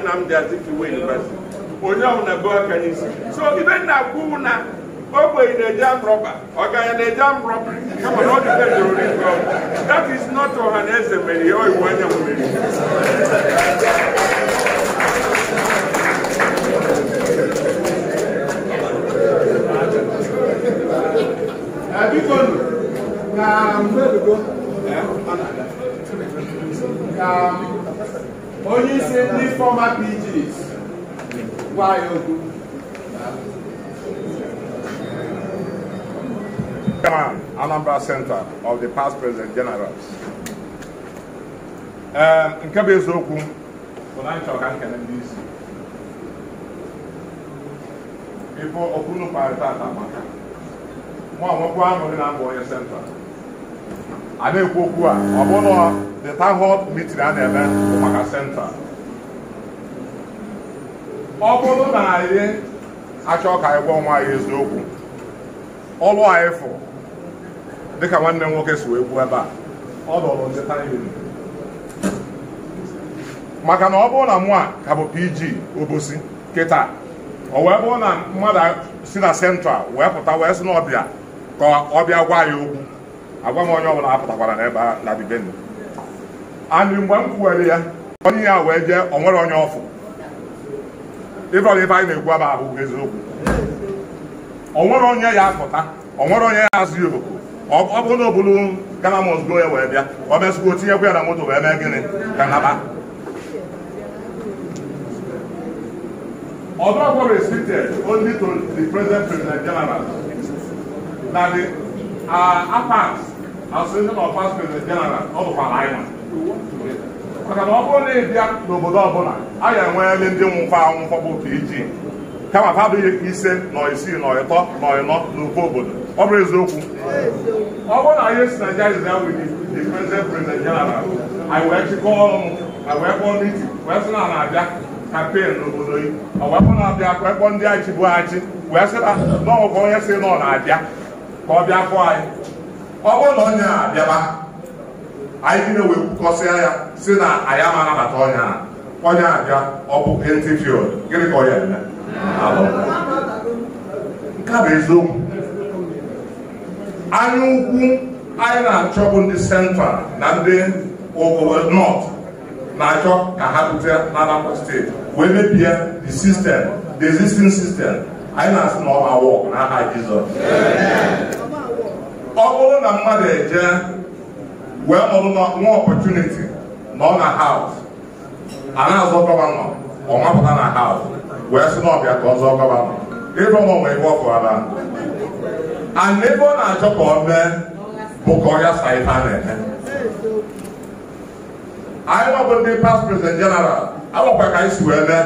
Nnamdi Azikiwe University onye ọwụ na be n'isi so ibe nna kwuwu na ogbenye na-eji amrọba ọganya na-eji amrọba kama na ọ dị ka jụrụ n'ike ọgwụ that is not ọha na eze mere ya ọiwu anyanwụ mere biko na mgbebigo ka onye isi ndị fọma pgs gwa ya okwu Anambra Center of the past President Generals. Um, nke bụ eziokwu bụ na nchọ ka nkene ndị isi ife okunu kparịta ata maka nwa nwekwu aṅụrị na mbụ onye senta a na-ekwu okwu a ọ bụ bụrụ the town hall meeting a na-eme bụ maka senta ọ bụrụ na anyị achọ ka anyị gwa nwa eziokwu ọlụ anyị fụ dịka nwanne m nwoke si wee gwuo ebe a ọ lụrụ maka na ọ bụrụ na mụa ka bụ pg obosi kịta ọ wee bụrụ na mmadụ si na sentral wee pụta wee si n'ọbịa ọbịa ka ọ bịa gwa ya okwu agwa m onye ọbụla apụtakwara n'ebe na bibeni anyị mgbe m kwuwere ya onye ya wee jee o nwere onye ọfụ ife ọbụla ife anyị na-ekwu aba ahụ eziokwu onwere onye ya apụta onwere onye ya azụ ya oku ọ bụrụ na obulu Ghana must go ya wee bịa o mesịgo tinyekwa ya na moto wee mee gịnị ka naba ọdụọgwọ restricted only to the present president general na the apart as president of past president general ọ bụkwa anyị maka na ọ bụrụ na ị bịa n'obodo ọbụla a ya enweele ndị nwụkwa anwụkwọ bụ ka iji e kama ha abụghị ise na isii na ịtọ nọ ịnọ n'ofe obodo ọ bụrụ eziokwu ọ bụrụ na ihe si Naịjirịa is that with the present president general anyị wee chịkọ ọnụ anyị wee kpọọ n'iti wee sị na a na-abịa kampen n'obodo yi ọ wee kpọọ na-abịa wee kpọọ ndị anyị chịbụ achị wee sị na n'ọgwụkwọ onye si na ọ na-abịa ka ọ bịa fụọ anyị ọ bụrụ na onye na-abịaba anyị niile wee kwukọsịa ya si na anyị ama anabata ọnya a ọnya abịa ọ bụ entifield gịnị ka ọ ya eme nke a bụ eziokwu anya ukwu anyị na bụ ndị sentral na ndị nọt na-achọ ka ha bute na steeti wee mebie the system the existing system anyị na-asị na ọ ma wọk n'aha Jizọs ọ bụrụ na mmadụ eje wee nọrọ nwa ọpọtuniti nọ na haus ana azọ gọvanọ ọmapụta na haus wee sị n'ọbịa ka ọ zọọ gọvanọ ịrụ ọmụ nwe ibe ọfụara ana ebe ọ na-achọ ka ọ mee bụ ka ọ ya sa ife a na-eme anyị nọbụ ndị past president general agwakwa ka anyị si wee mee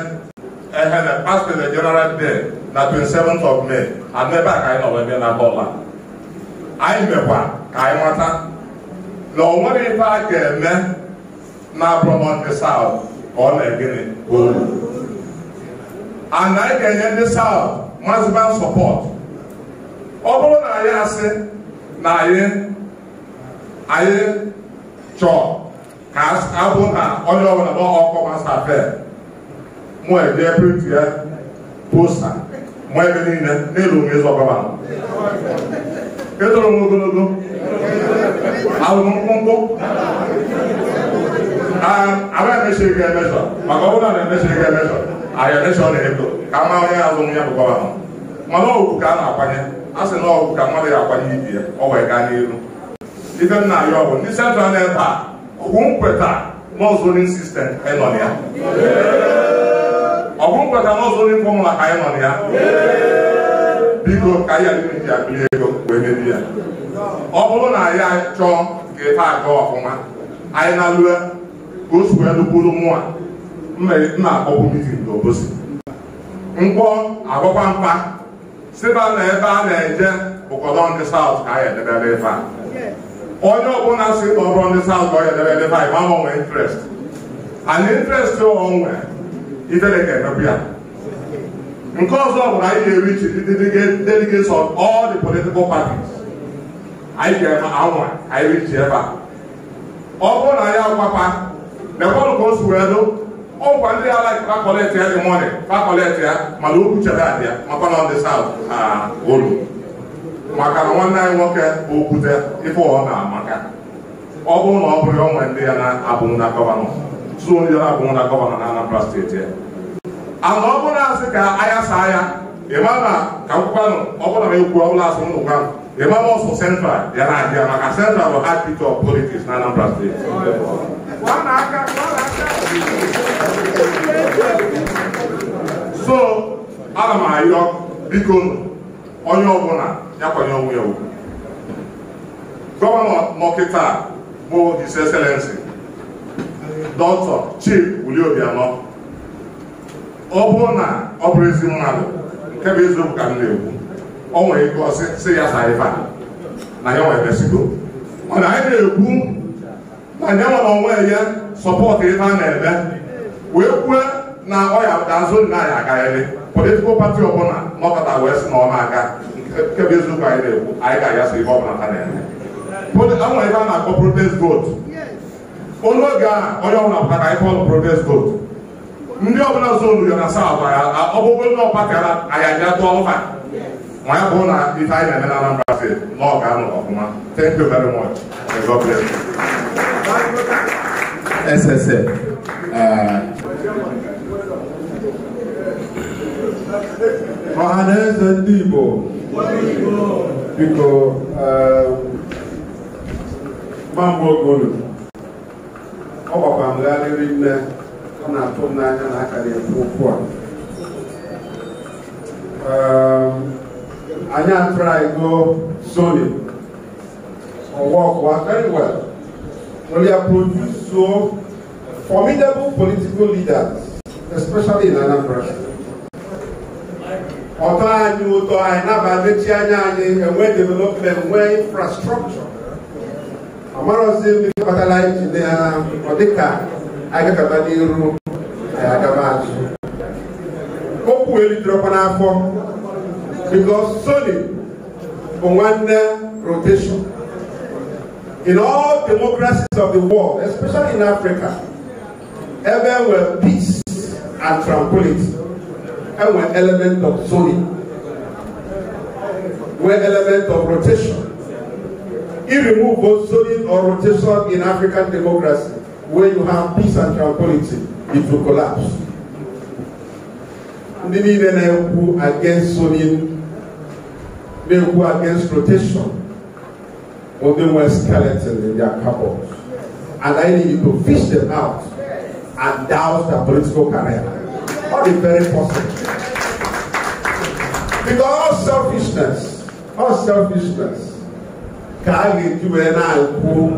ehene past president general day na 27th of May ana ebe a ka anyị nọrọ ebe na bọla anyị mekwa ka anyị mata na ọ nwere ife a ga-eme na-abụrọ ndị saụt ka ọ na-egịnị ana anyị ga-enye ndị saụt maziba sọpọt ọ bụrụ na anyị asị na anyị anyị chọọ ka abụ na onye ọbụla ma ọkụ masta fe mụ eje print ya posta mụ ebe niile n'elu mezọ gọvanọ edoro m ogologo ahụmkpụmkpụ agaghị emesiri gị emesọ maka ọ bụla na-emesiri gị emesọ ahịa emesọ na ego ka a onye azụ ya bụkwa ahụ mana ọgwụ ka a na-akwanye a sị ka mmadụ ya akwanye ibi ya ọ wee gaa n'elu. ibe m na-arịọ ọgwụ ndị central na-ebe a nkweta sistem ya ọgwụ ka anyị ya biko ka anyị adịghị akpịrị ego wee mebie ya ọ bụrụ na anyị chọọ nke ife aga ọfụma anyị na-alụa ka o sikwa elukwuru mụa na-akpọkwu e, mitin n'obosi mkpọ agwakwa mkpa siba na ebe a na-eje ụkọdọ ndị saụt ka anyị edebere ife a onye ọbụla si kpọrọ ndị saụt ka ọ edebere ife anyị ma gbanwee intrest and intrest onwe itere ka emepụ ya nke ọzọ bụ na anyị ga-erichi ndị delegates of all the political parties anyị ga-eme anwa anyị ji ebe a ọ bụrụ na ya gwapa lekwanụ ka o si wee dụ ọgwa ndị ala fakọleti ya dị mọni fakọleti ya mana okwu chere adị ya makwa na ndị saut ha olu maka na nwanne anyị nwoke bụ okwute ife ọ na-amaka ọ bụrụ na ọ bụrụ ya onwe ndị ya na-abụghị na gọvanọ tụ ndị ya na-abụghị na gọvanọ na Anambra steeti ya ana ọ bụrụ na asị ka anya saa ya ịma na ka nkwukwanụ ọ bụrụ na ekwu ọ bụla asị m nụkwanụ The members for Central, they are they are maka Central will hard of politics na Anambra State. So, aga m ayọ biko onye ọbụla ya kwanye onwe ya ugwu. Gọvanọ Mọkịta bụ His Excellency Dr. Chief Willie Obianọ ọ bụrụ na ọ bụrụ ezi mmadụ nke bụ eziokwu ka m na-ekwu Ọ nwere ike ọsị sị ya saa ife na ya nwere besigo mana anyị na-ekwu na nye nwere onwe ya sọpọtụ ife a na-eme wee kwue na ọya azụ nna anyị akarịrị politikal pati ọbụla nọkọta wee sị na ọ na-aga nke bụ eziokwu anyị na-ekwu anyị ga-ayasị aya ife ọbụla ha na-eme nwere ife a na-akpọ protest vote onye oge a onye ọbụla pụta ka anyị kpọọ protest vote ndị ọbụla zonu ya na saa ọbụla ọbụbụ ndị ọkpakara anyị aja tụọ ụfa ma ya bụrụ na ife anyị na-eme na Anambra steeti na ọ ga-anọ ọfụma thank you very much God bless you SSA ọha na eze ndị Igbo biko gbamgbe ogolu ọ gbakwa m gharịrị nne ọ na-atụ m n'anya na aka na-ekwu okwu a anyị atụrụ go soli ọwa very well we are produced so formidable political leaders especially in Anambra ọtọ anyị ụtọ anyị naba mechi anya anyị enwe development nwee infrastructure amarozi mmiri kpatara injinia na ọ dịka anyị gagaba n'iru anyị agaba azụ okwu elitere ọkwa n'afọ because solely for one rotation. In all democracies of the world, especially in Africa, ever everywhere peace and tranquility, and were element of zoning, were element of rotation. If you remove both zoning or rotation in African democracy, where you have peace and tranquility, it will collapse. Ndị niile na-ekwu against zoning They were against rotation. or they were skeleton in their cupboards. And I needed to fish them out and douse their political career. Not the very possible. Because all selfishness, all selfishness, can lead to an who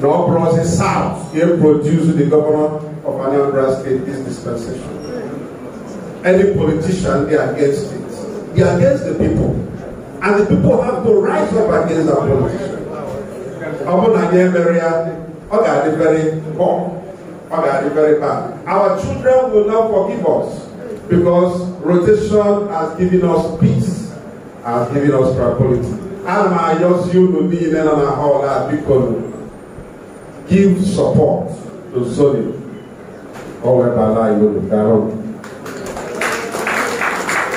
no process south here produce the governor of Anambra State this dispensation. Any politician, they are against it. They are against the people. And the people have to rise up against our politicians. Ọbụna anyị emere ya, ọ ga very poor, ọ ga very bad. Our children will not forgive us because rotation has given us peace, has given us tranquility. Ana m ayọzi unu niile nọ na họl a biko give support to Zoni. Ọ webala iwu gara.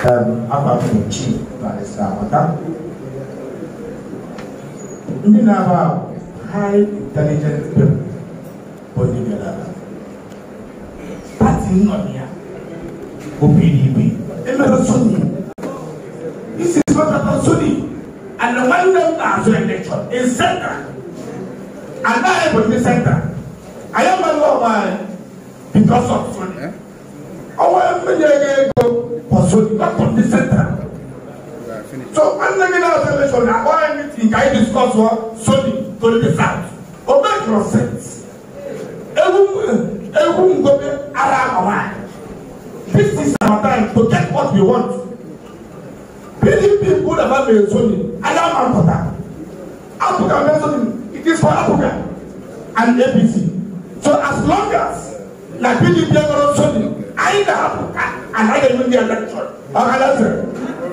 Um, Afa m Chi na Africa. We have high intelligent people body together. Party not here. OPDB. Emerson. This is what happened Sunni. And the one them as an election in center. And I am in center. I am a lawman uh, because of Sunni. Eh? Our media go for Sunni, not for the center. Definitely. So when Nigerian Association na all meeting ka e discuss for solid to the south. O make your sense. Ewu ewu ngobe ara awa. This is our time to get what we want. PDP good about the Sony. Allow man for that. Africa mentioned it is for Africa and ABC. So as long as na PDP are not Sony, either Africa and either Indian election. Okay, that's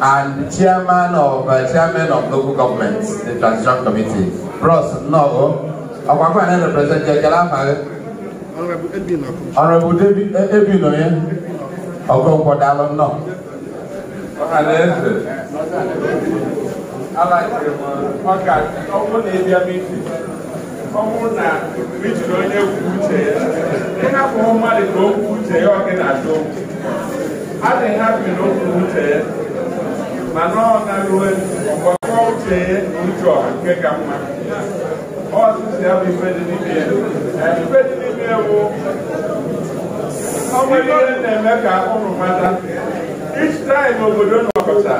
and chairman of uh, chairman of local government, the transition committee, Bros Nogo. Ọ̀pọ̀pọ̀ ẹ̀rẹ́ represent Jẹjẹ Láfàárẹ́. Honourable David Ebino yẹn. Ọ̀gbọ́n Nkọ̀dá lọ náà. Ọ̀hàlẹ́ ẹ̀sẹ̀. Aláìsè mọ̀ ọ̀gá ọmọ na ebi ẹbí ntì. Ọmụ na rijiri onye kwuo uche ya. Ị hapụ mmadụ ka o kwuo uche ya ọ gị na-achọ okwu. Adịghị hapụ na o kwuo uche ya. mana ọ na-arụwe ọkpọkọ uche ụjọ nke ka mma ọzụzụ ya bụ ife dị n'ime ya ife dị n'ime ewu ọ ihe na-eme ka ụmụ mata each time obodo nọkọta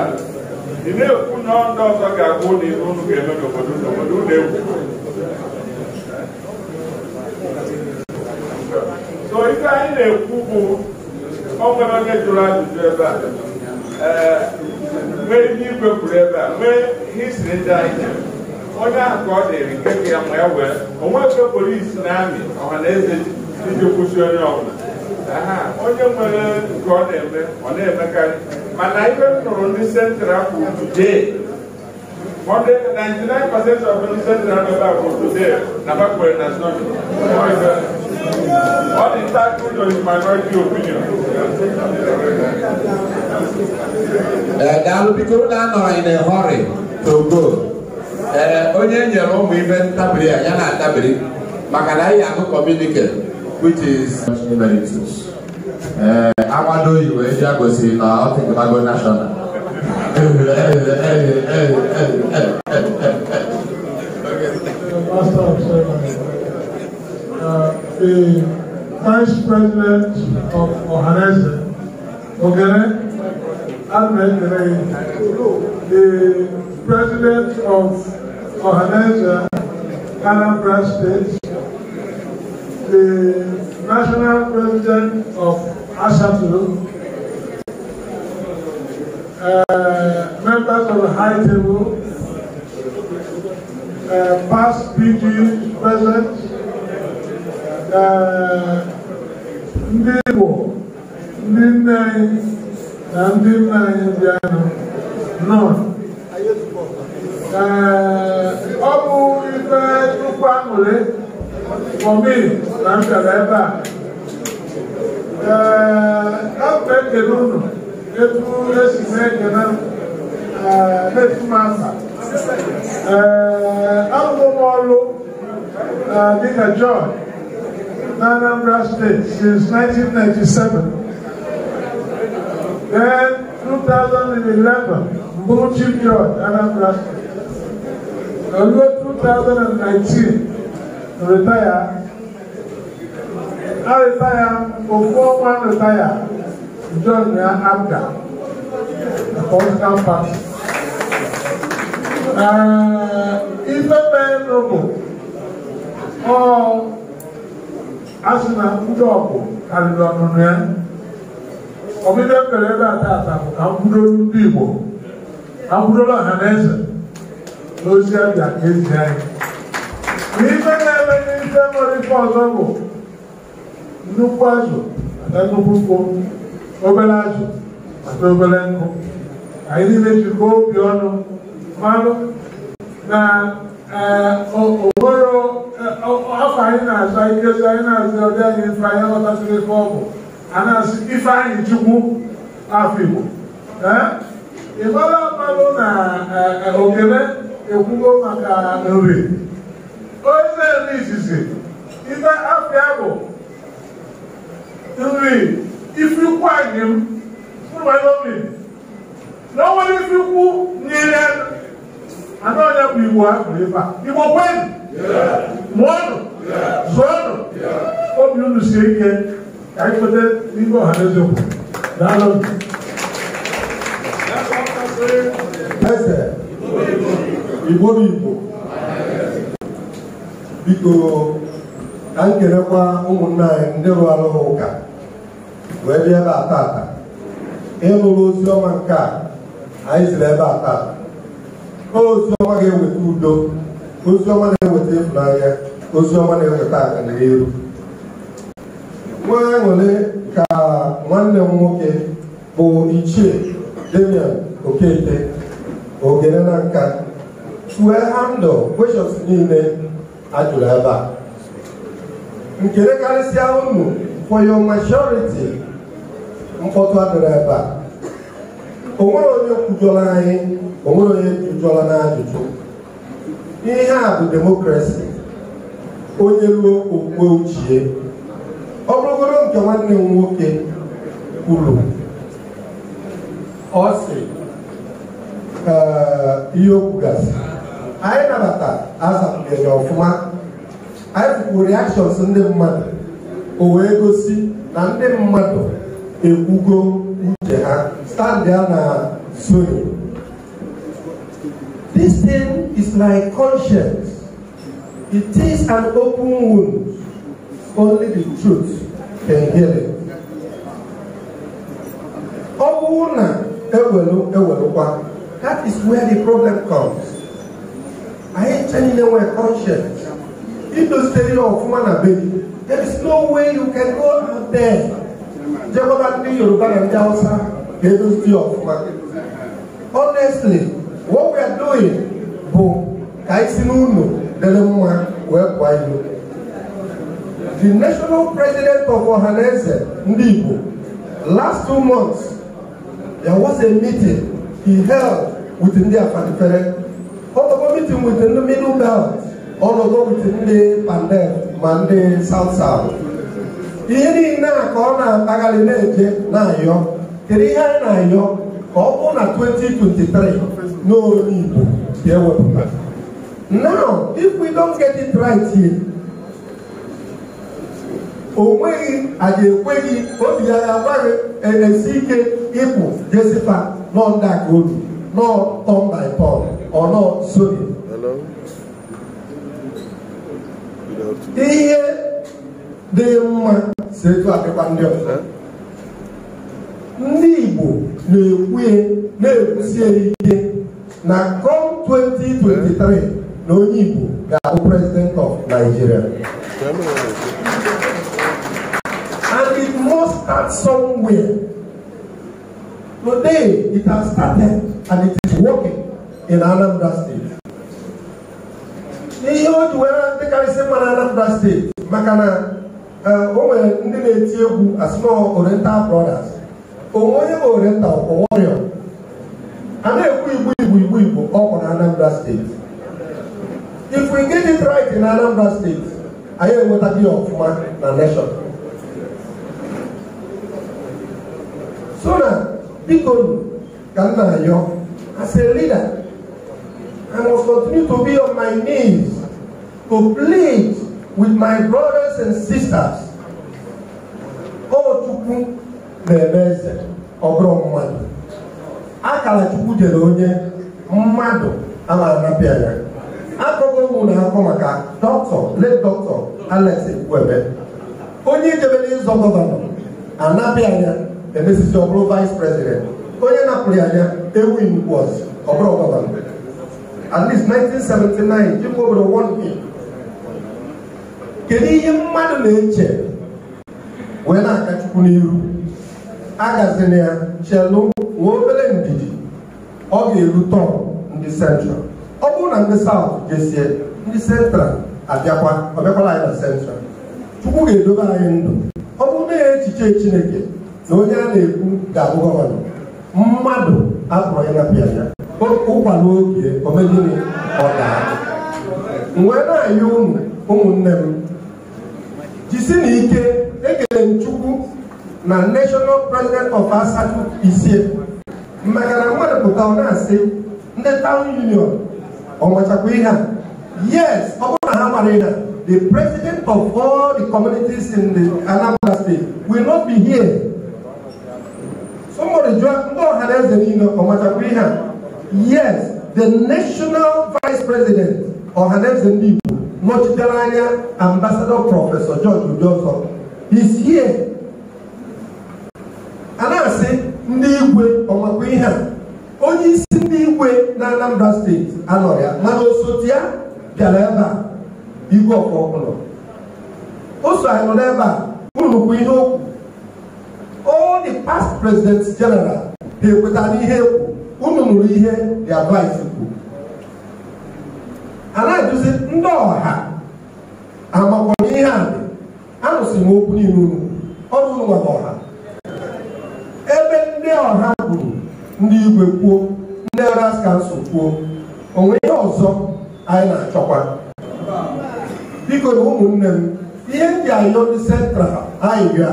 ị na-ekwu na ọndụ ọzọ ga-abụ ụlọ ibe unu ga-eme n'obodo n'obodo ụlọ egwu so ife anyị na-ekwu bụ o nwere onye jụrụ ajụjụ ebe a mee ihe igwe kwuru ebe a mee histri ndị anyị onye ahụ ka ọ dịrị nke ka ya ma ya wee onwe ebe polisi na amị ọha na eze iji kwụsị onye ọbụla onye nwere nke ọ na-eme ọ na-emekarị mana ibe m nụrụ ndị sentral kwụ today Monday, 99% of the central member for today, Nabakwe, that's not. What is that good or is minority opinion? Uh, eh, daalụ biko na anọrọ in a hurry to go. Eh, onye nyere ụmụ ibe ntabiri ya na atabiri maka na anyị ahụ communicate which is emeritus. Eh, agbado oyibo eji agosiri na ọtịgbago national. Pastor, the Vice President of Ohanese, Ogere Ahmed the President of Ohanese, Anambra State, the National President of ASATU, uh, members of the High Table, uh, past PG, present, ndị Igbo ndị nne anyị na ndị nna anyị bịa nọ ọ bụ ife nnukwu aṅụrị fọmi na m bịara ebe a ee ekele unu etu esi na-ekele na-etu m aka ee arụrụ m ọrụ dịka Jọn in Anambra State since 1997. Then 2011, Mochi George, Anambra State. Although 2019, retire. I retire, before one retire, John Abda, the political party. Uh, if a man noble or asena ndọọkụ karịrị ọnụnụ ya ọbịbịa mere ebe a taata bụ ka mkwudoro ndị Igbo ka mkwudoro ọha na eze na ozi abịa ka ezi anyị n'ife na-eme n'ife nwere ife ọzọ bụ nnukwu azụ mata nnukwu nkwụ obere azụ mata obere nkụ anyị niile jikọọ obi ọnụ mmanụ na ụbụrụ afọ anyị na-azọ ikezi anyị na-azọ ọbịa anyị ife anyị aghọtasịrị ife ọ bụ a na-asị ife anyị chukwu afọ Igbo ịgbara mmanụ na okele ekwugo maka nri onye na-eme izizi ife afịa bụ nri ifikwu anyị m mmanụ obi na o nwere ifikwu nyere anụ onye bụ igbo ha kwuru ebe a igbo kwenụ mụọnụ zụọnụ obi unu sie ike ka anyị kweta n'ihe ọha na eze kwuru daalụ eze igbo bụ igbo biko ka anyị kelekwa ụmụnna anyị ndị rụrụ arụ ụka wee bịa ebe a tata ịlụrụ ozi ọma nke a anyị siri ebe a tata ozi ga-eweta udo ozi ọma na-eweta ịfụnanya ozi ọma na-eweta aganihu nwa aṅụrị ka nwanne m nwoke bụ ichie Damian Okeke ogene na nka chue handụ kweshọns niile a ebe a nkele karịsịa ụmụ for your majority mkpọtụ adịrị ebe a o onye kwujọrọ anyị o onye jụjụọla n'ajụjụ ihe a bụ demokrasi onye ruo okwukwe ochie ọ bụrụgoro nke nwanne m nwoke kwuru ọ sị ihe okwu gasị anyị nabata azapụnyere ọfụma anyị fụkwuru reactions ndị mmadụ o wee gosi na ndị mmadụ ekwugo uche ha standị na zoni This thing is my conscience. It is an open wound. Only the truth can heal it. Ọ bụrụ ewelu ewelụkwa, that is where the problem comes. I Anyị chanile nwe conscience. Idosiri ọfụma na baby, there is no way you can go out there. Jekọta ndị Yoruba na ndị Hausa ga-edozi ọfụma. Honestly, what we are doing bụ ka anyị si n'ụlọ dere mma wee kwa ilu the national president of Ohanaeze ndị Igbo last two months there was a meeting he held with ndị Afanifere ọtọkọ meeting with the middle belt ọnọdụ with ndị Pandel ma ndị South South ihe niile a ka ọ na-akpagharị na-eje na-ayọ kedu ihe anyị na-ayọ ka ọ bụrụ 2023 No, Igbo ga-ewepụta now if we don't get it right here o nweghị a ga-ekweghị obi ya ya agbaghị e, esi ike ịpụ jesipa nọ ndị aka obi nọ tom by paul ọ nọ sony ihe dị mma si etu adịkwa ndị ọzọ ndị Igbo na-ekwu e, na-ekwusi e ike na kom 2023 na onye Igbo ga-abụ president of Nigeria and it must start somewhere today it has started and it is working in Anambra State ihe o ji were dịkarịsị mma na Anambra State, maka na eh, o nwere ndị na-eti egwu asịnọ Oriental Brothers onye ma oriental orion a na-ekwu igbo igbo igbo igbo ọkụ na anambra steeti if we get it right na anambra steeti anyị enweta dị ọfụma na nation so na biko ka m na-ayọ as a leader I must continue to be on my knees to plead with my brothers and sisters. Oh, Chukwu, na-eme eze ọbụrụ bụrụ mmadụ akara chukwu jere onye mmadụ a na-anapịa ya akụkọ ụmụ na-akọ maka dọkịta late dọkịta Alex Nkwebe onye ijebere ịzọ gọvanọ anapịa ya emesizi ọ bụrụ vice president onye napụrụ ya ya Ewin was ọbụrụ gọvanọ at 1979 dịka obodo wọnpi kedu ihe mmadụ na-eche wee na-aka chukwu n'iru agazina ya chelu nwa obere ndidi ọ ga-eru tọn ndị central ọ bụrụ na ndị saut jesie ndị central abịakwa ọ bịakwala anyị na central chukwu ga-edobe anyị ndụ ọ bụrụ na ya echiche chineke na onye a na-ekwu ga-abụ gọvanọ mmadụ apụrụ ya napịa ya ụkwala oge omegịnị ọ daa wee na-ayị ụmụnne m jisi na ike ekele chukwu na national president of asatu isie maka na mmadụ pụta ọ na-asị ndị town union ọmachakwa ihe a yes ọ bụrụ na ha mara ihe the president of all the communities in the anambra state will not be here somebody jụọ ndị ọha na eze niile ihe a yes the national vice president ọha na eze ndị igbo nọchitere anya ambassador Professor george udosọ is here a na-asị ndị igwe ọmakwa ihe a onye isi ndị igwe na Anambra steeti anọrọ ya mana osote ya bịara ebe a igwe ọkpọkpụlọ o so anyị nọ n'ebe a ụnukwu ihe okwu all the past president general ga ekwetara ihe ekwu unu nụrụ ihe the advice kwu a na-eduzi ndị ọha amakwana ihe a dị anụsị m okwu niile unu ọrụ ụnwa na ọha ọha kwuru ndị igwe kwuo ndị ras kansụl kwuo onwe ihe ọzọ anyị na-achọkwa biko na ụmụnne m ihe ndị ayọ ndị sentral anyị bịa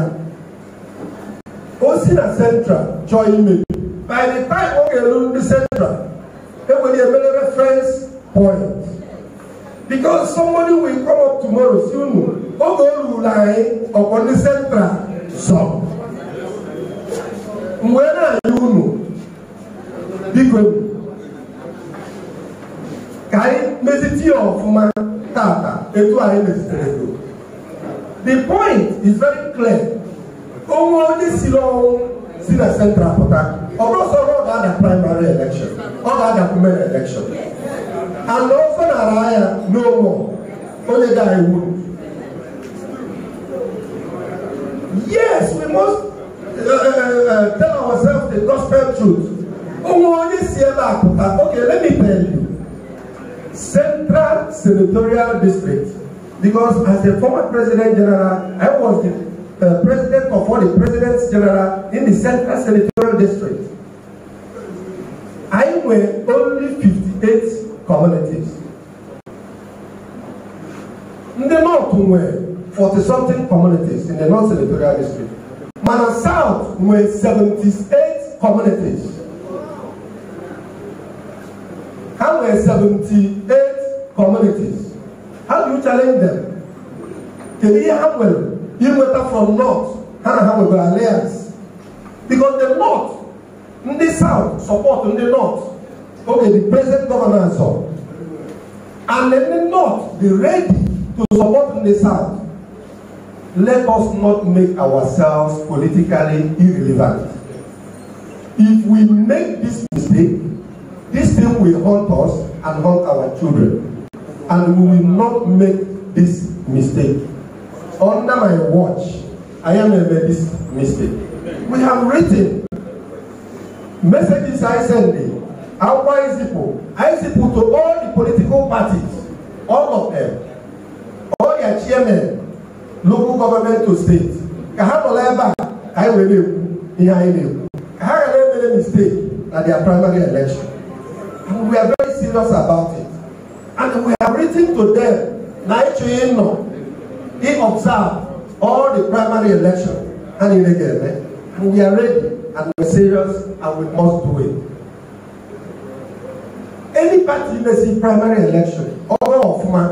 o si na sentral chọọ imebi by the time ọ ga ndị sentral enwere emere reference point because somebody will come up tomorrow si unu oge o ruru anyị ọkwa ndị sentral sọ m na-enye unu biko ka anyị mezite ya ọfụma tata etu anyị mezitere go the point is very clear onwe onye si n'ọnwụ si na central pụta ọ bụrụsọrọ ọ ga-ada primary election ọ ga-ada women election and ofe na-ara ya n'onwe onye ga-ewu yes we must Eh, eh, eh, tell ourselves the gospel truth. Okay, let me tell you. Central Senatorial District. Because as the former President General, I was the uh, President of all the Presidents General in the Central Senatorial District. I were only 58 communities. In the north, we were 40 something communities in the north senatorial district. Mana South were 78 communities. How were 78 communities? How do you challenge them? Can you handle you matter from North? How do you have alliance? Because the North, in the South, support in the North. Okay, the present governor and so. And in the North, they're ready to support in the South let us not make ourselves politically irrelevant. If we make this mistake, this thing will haunt us and haunt our children. And we will not make this mistake. Under my watch, I am a this mistake. We have written messages I send our ICPO, ICPO to all the political parties, all of them, all their chairmen, local government to state ka ha nọ n'ebe a ka anyị were ekwu ihe anyị na-ekwu ka ha ghara emere mistake na their primary election and we are very serious about it and we have written to them na ịchọghị ịnọ observe all the primary election ha niile ga-eme and we are ready and we are serious and we must do it. Any party mesi primary election ọbụla ọfụma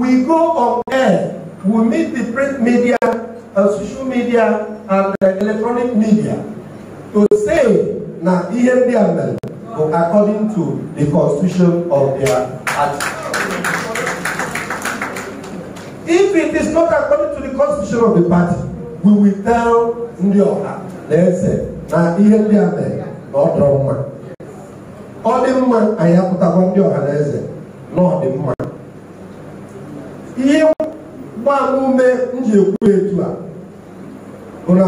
we go on air we meet the print media and uh, social media and the electronic media to say na ihe ndị according to the constitution of their party. if it is not according to the constitution of the party we will tell ndị ọha na eze na ihe ndị a mere na ọ dọrọ mma ọ dị mma anyị apụtakwa ndị ọha na eze na ọ dị mma ihe mgbaama ume m ji ekwu etu a bụ na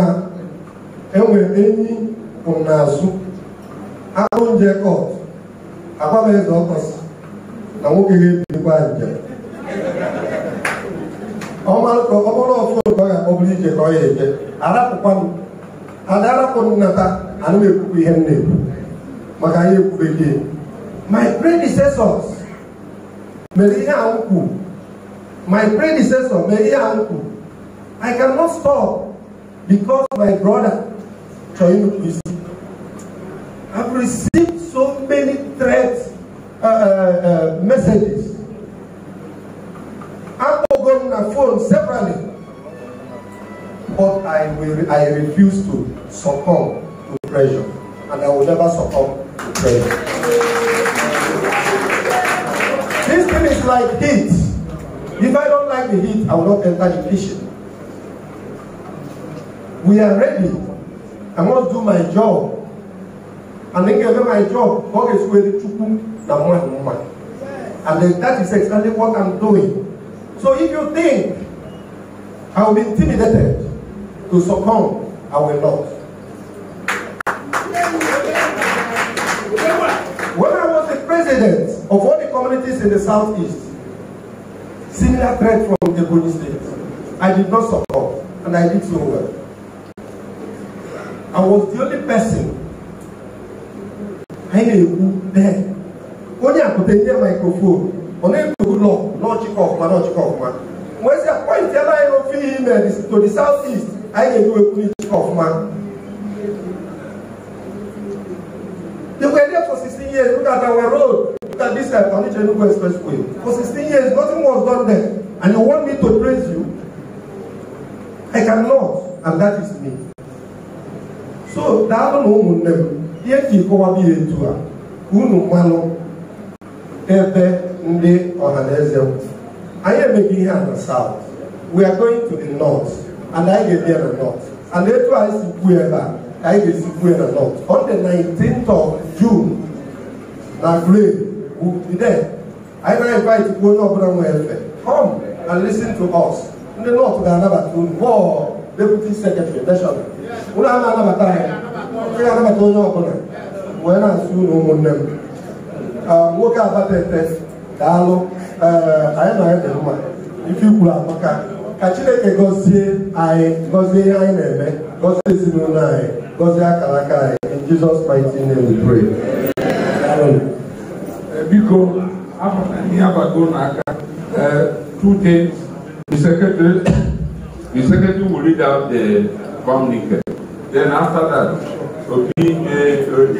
enwe enyi n'azụ akpụ njekọt agbameze ọkọsị na nwoke ga-ebirikwa njem ọbụrụ ọfụ ka ọ ga-akpọbụrụ ije ka ọ ya eje arapụkwanụ ada arapụ nnata ana m ekwukwa ihe m na-ekwu maka anyị ekwu bekee my predecessors mere ihe ahụ kwuru My predecessor, my dear uncle, I cannot stop because my brother, Choyim is I've received so many threats, uh, uh, uh messages. I've on a phone separately. But I, will, I refuse to succumb to pressure. And I will never succumb to pressure. this thing is like this despite the heat, I will not enter the kitchen. We are ready. I must do my job. And then given my job, God is ready to come than one woman. And then that is exactly what I'm doing. So if you think I will be intimidated to succumb, I will not. When I was the president of all the communities in the southeast, similar threat from the Ebony State. I did not support, and I did so well. I was the only person anyị na-ekwu dee onye akụta nye mikrofon ọ na-ekwu lọ n'ọchịkọ ọfụma n'ọchịkọ ọfụma wee sị apọịntị ebe anyị n'ofe ihe ime to the south east anyị a police n'ịchịkọ ọfụma They were there for 16 years, look at our road. Look at this uh, Faniche Enugu Expressway. For 16 years, nothing was done there. And you want me to praise you? I cannot. And that is me. So, daalụ na ụmụnne m, ihe ji kọwa biya etu a, unu mmanụ ebe ndị ọhaneze m. Anyị emeghị ihe a na south. We are going to the north. And anyị ga-ebi na north. And etu anyị si kwuo I a, anyị ga-esi kwuo north. On the 19th of June, Now, grade will be there. I now invite you, no brand welfare. Come and listen to us. Ndị nnọọ ga-anabata deputy secretary anabata ga-anabata onye ọbụla wee na-asụ ụlọ ụmụnne m nwoke abatete daalụ anyị na anyị dị mma ife ikwuru amaka ka chineke gọzie anyị gọzie ihe anyị na-eme gọzie ezinụlọ anyị gọzie akara aka anyị in Jesus we biko afọta ihe abago n'aka eh, two things the secretary the secretary will read out the communique then after that obi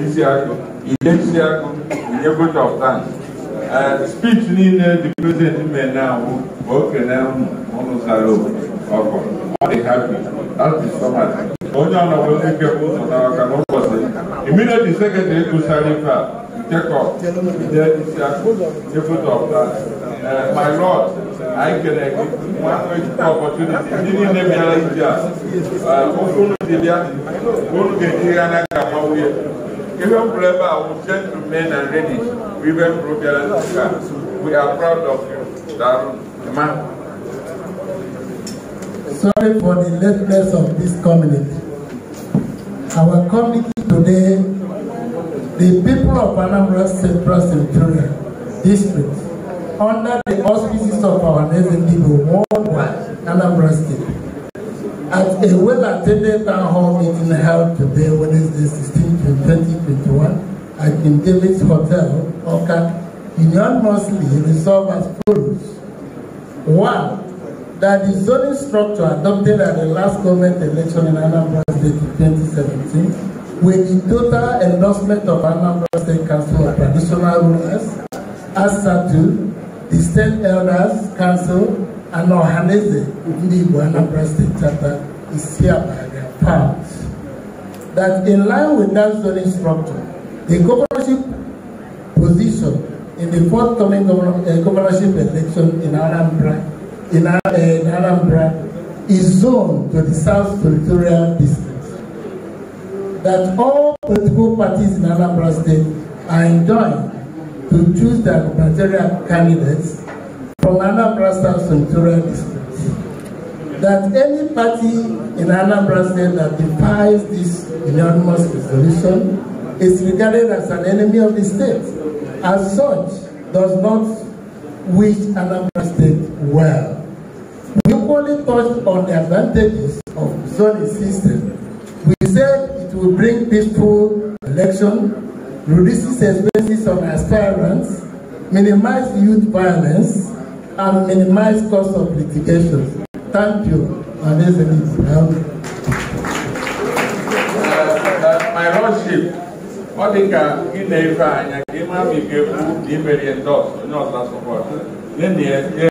isiakụ inye isiakụ inye vote of thanks eh, speech niile the president mee na-ahụ ma o kenee unu unu obodo ọkụ ọ dị hapi that is onye ọnọdụ ndị bụ pụtara aka n'ụbọchị immediately secretary kwụsara ife a Jacob there is a good of my lord anyị kere gị nwanne ejikwa opportunity ndị niile bịara ije a uh, okwu unu dị bịa unu ga-eji ya n'aka nwa nwunye Even Breva will tend to men and ready. Even Breva, we are proud of you. That man sorry for the lateness of this community. Our committee today, the people of Anambra Central Centurion District, under the auspices of our nation people worldwide, Anambra State, at a well-attended town hall meeting held today, Wednesday 16, 2021, at King David's Hotel, Oka, Union mostly resolved as follows. One, that the zoning structure adopted at the last government election in Anambra State in 2017, with the total endorsement of Anambra State Council of Traditional Rulers, ASATU, the State Elders Council, and Ohaneze, the Anambra State Charter, is hereby part. That in line with that zoning structure, the governorship position in the forthcoming govern uh, governorship election in Anambra in, Anambra eh, is zoned to the South Territorial District. That all political parties in Anambra State are enjoined to choose their gubernatorial candidates from Anambra South Territorial District. That any party in Anambra State that defies this unanimous resolution is regarded as an enemy of the state. As such, does not wish Anambra State well. Only touched on the advantages of zoning system. We said it will bring peaceful election, reduces expenses of aspirants, minimize youth violence, and minimize cost of litigation. Thank you, and that's it. My Lordship, ọ dị ka ị na-efe anya ka ị ma ma ị ga-ekwu na ị mere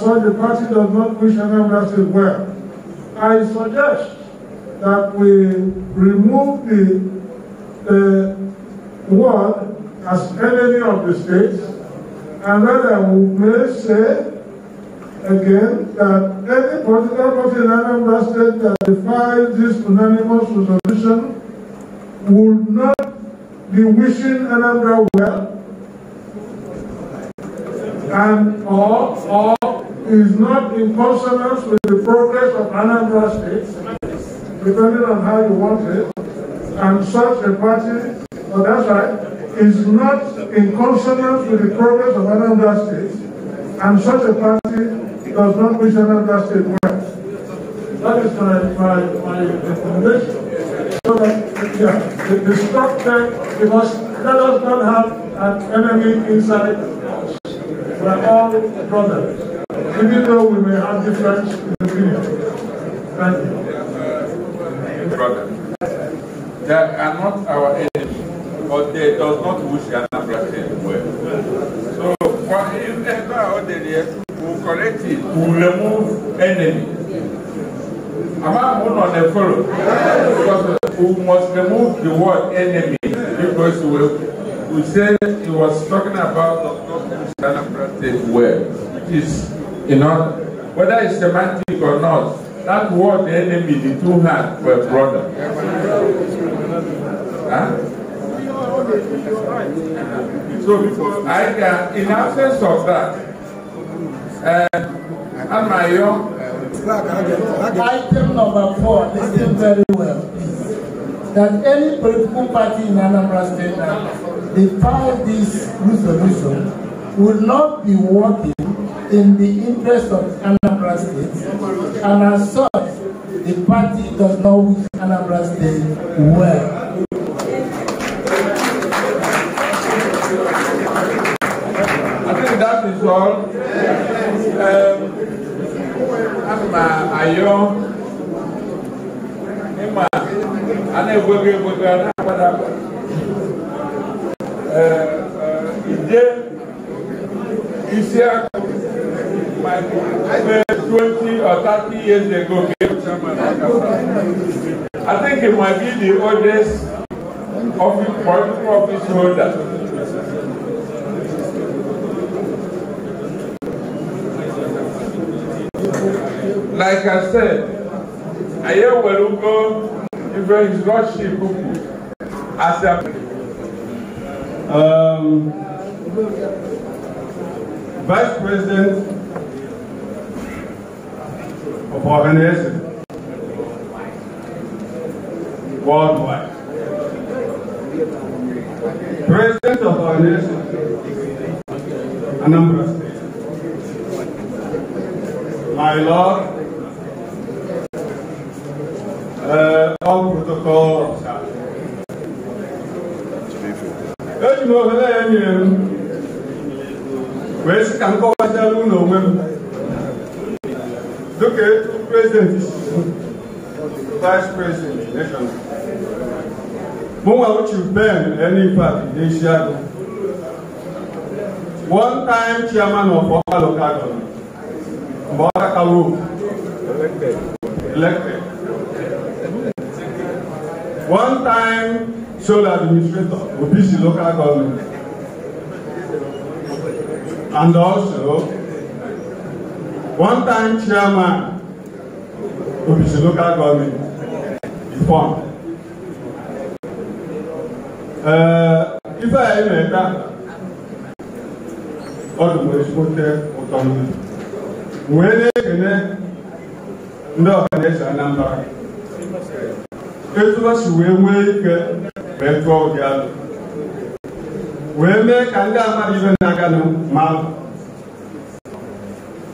concerned, the party does not wish anyone well. I suggest that we remove the uh, word as enemy of the state, and rather we may say again that any political party in Anambra State that defies this unanimous resolution would not be wishing Anambra well and or or is not in consonance with the progress of Anambra State, depending on how you want it, and such a party, oh, that's right, is not in consonance with the progress of Anambra State, and such a party does not wish Anambra State well. That is my, my, my recommendation. So that, uh, yeah, the, the structure, because let us not have an enemy inside us. We are all brothers. Even though we may have different opinion, Thank you. Brother, they are not our enemy, but they does not wish Anambra State well. So, if ever are ordinary, we will correct it, we will remove enemy. Among one on the follow, because we must remove the word enemy because we we said he was talking about not Anambra State well, which is You know, whether it's semantic or not, that word the enemy, the two hands were brother. Huh? So I can, in absence of that, uh, um, and my young. Item number four, listen very well, That any political party in Anambra State that defies this resolution will not be working in the interest of Anambra State, and as such, the party does not wish Anambra State well. I think that is all. Um, I'm uh, Ayo. Ima, I never will be able to Ije, Isiaku, maybe 20 or 30 years ago came chairman Akasa. I think he might be the oldest office, political office holder. Like I said, I hear Welugo, even his lordship, as a um, Vice President for Hennessy. Worldwide. President of our nation, Anambra State. My Lord, uh, all protocol observed. Eji m ohere ya nye m Okay, two presidents, vice president, Nation, Mo wà ó ti bẹ́ẹ̀ ẹni pàtì ní Ṣíàgò. One time chairman of Ọ̀pá local government, Mbọ́lá Kawo, elected. elected. One time sole administrator, Obisi local government. And also, One time chairman of Ee, local government is formed. Ife anyị na-ete ọdụ bụ ezigbote ụtọ mmiri. Wee na-ekene ndị ọhaneze Anambra. Ezigbo si wee nwee ike wee tụọ ụdị alụ. Wee mee ka ndị amadụ ibe na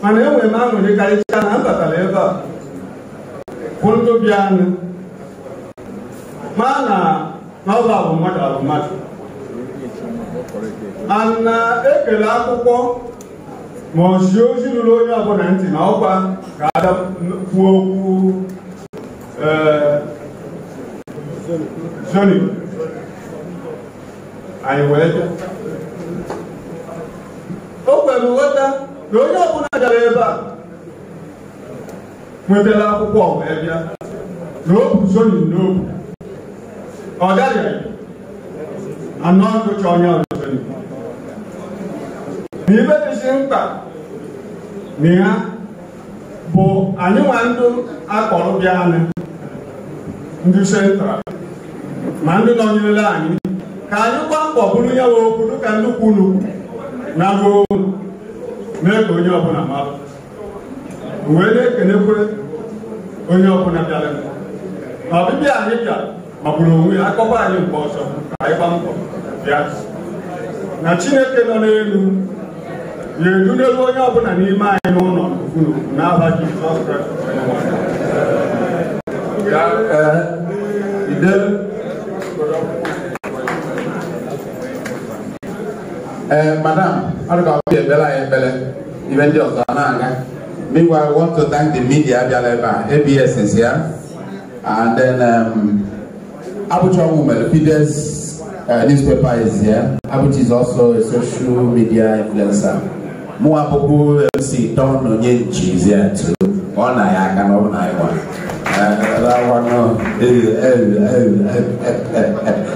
mana e nwere aṅụrị karịchaa na m batara ebe a kwụ ndobi anụ ma na n'ọba bụ mmadụ abụ mmadụ ana ekele akwụkwọ ma ọ zie ozi ruru onye ọbụla ntị na ọkwa ga-adakwuo eh, okwu zoni anyị wee bịa o kwere nghọta na onye ọbụla gara ebe a nwetara akwụkwọ wee bịa na o bu n'obu ọ gaghị anọ ndụcha onye ọzọzoni na ibe dịzi mkpa na ya bụ anyị nwa ndụ akpọrọ bịa anyị ndị sentral ma ndị nọnyerela anyị ka anyị gbaa mbọ bụrụ ya nwe okwu dịka nnukwu unu na ruo mee ka onye ọbụla mara wee na-ekenekwe onye ọbụla bịara na ọbịbịa anyị bịa magburu onwe akọba anyị mgbe ọzọ ka anyị gba mbọ bịa na chineke nọ n'elu na-edu n'elu onye ọbụla n'ime anyị n'ụlọ unu n'aha jizọs kraịst ee eh, madam arụka obi ekpere anyị ekpere ibe ndị ọzọ na-aga meanwhile I want to thank the media abịala ebe a ABS is here and then um, Abuja Women Fides uh, newspaper is here Abuja is also a social media influencer mụnwa bụbu MC Don Onyenchi is here too ọ na aka na na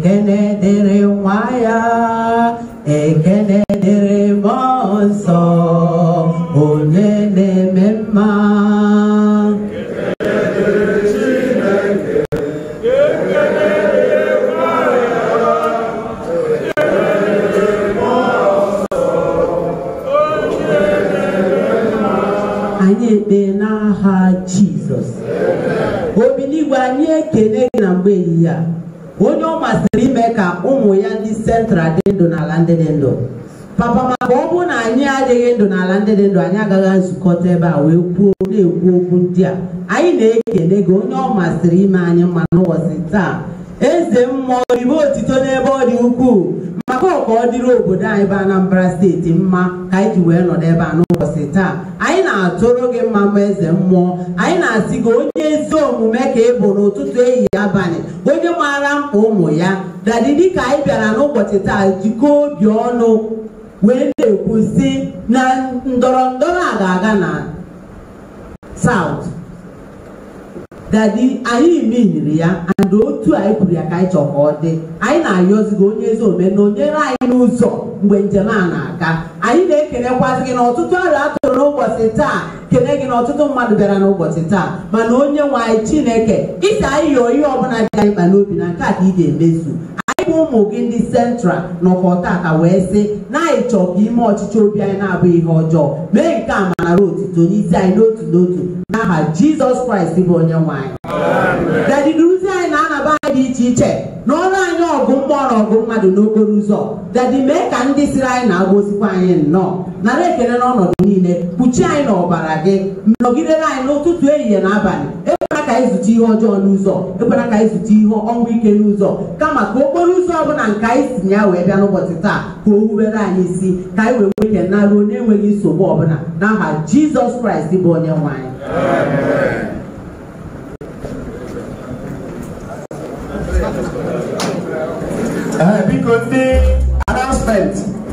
Dene Dere ndụ n'ala ndị dị ndụ papa maka ọ bụrụ na anyị adịghị ndụ n'ala ndị dị ndụ anyị agaghị nzukọta ebe a wee kwuo na-ekwu okwu ndị a anyị na-ekele gị onye ọ masịrị ime anyị mma n'ụbọchị taa eze mmụọ ribe otito n'ebe ọ dị ukwuu maka ọka ọ dịrị obodo anyị bụ Anambra steeti mma ka anyị ji wee nọ n'ebe a n'ụbọchị taa anyị na-atụrụ gị mma mma eze mmụọ anyị na-asị gị onye ezi omume ka ị bụ n'ụtụtụ ehihie abalị onye maara mkpa ụmụ ya dadi ka anyị bịara n'ụbọchị taa jikọọ obi ọnụ wee na-ekwu si na ndọrọ ndọrọ a ga-aga na South dadi anyị mehiri ya ada otu anyị kwuru ya ka anyị chọ ka ọ dị anyị na gị onye ezi ome na onyere anyị n'ụzọ mgbe njem a na-aga anyị na-ekenekwasị gị na ọtụtụ arịa atụrụ n'ụbọchị taa kene gị na ọtụtụ mmadụ bịara n'ụbọchị taa mana onye nwe anyị chineke isi anyị yọọ ihe ọbụla dị anyị mkpa n'obi na nke a ka ị ga-emezu ụmụ gị ndị central nọkọ tata wee sị na anyị chọọ ka ime ọchịchị obi anyị na abụghị ihe ọjọọ mee nke a manara otuto n'isi anyị n'otu n'otu n'aha Jizọs Kraịst bụ onye nwanyị. anyị dị iche iche na ọrụ anyị ọgụ mmụọ na ọgụ mmadụ n'okporo ụzọ dadị mee ka ndị siri anyị na-agozikwa anyị nnọọ nara ekele n'ọnọdụ niile kpuchie anyị n'ọbara gị nọgidere anyị n'ụtụtụ ehihie na abalị ekwela ka anyị zute ihe ọjọọ n'ụzọ ekwela ka anyị zute ihe ọnwụ ike n'ụzọ kama ka okporo ụzọ ọ bụla nke anyị si ya wee bịa n'ụbọchị taa ka o wubere anyị isi ka anyị wee nwee ike naruo n'enweghị nsogbu ọbụla n'aha Jizọs Kraịst bụ onye nwe anyị Uh, because the announcement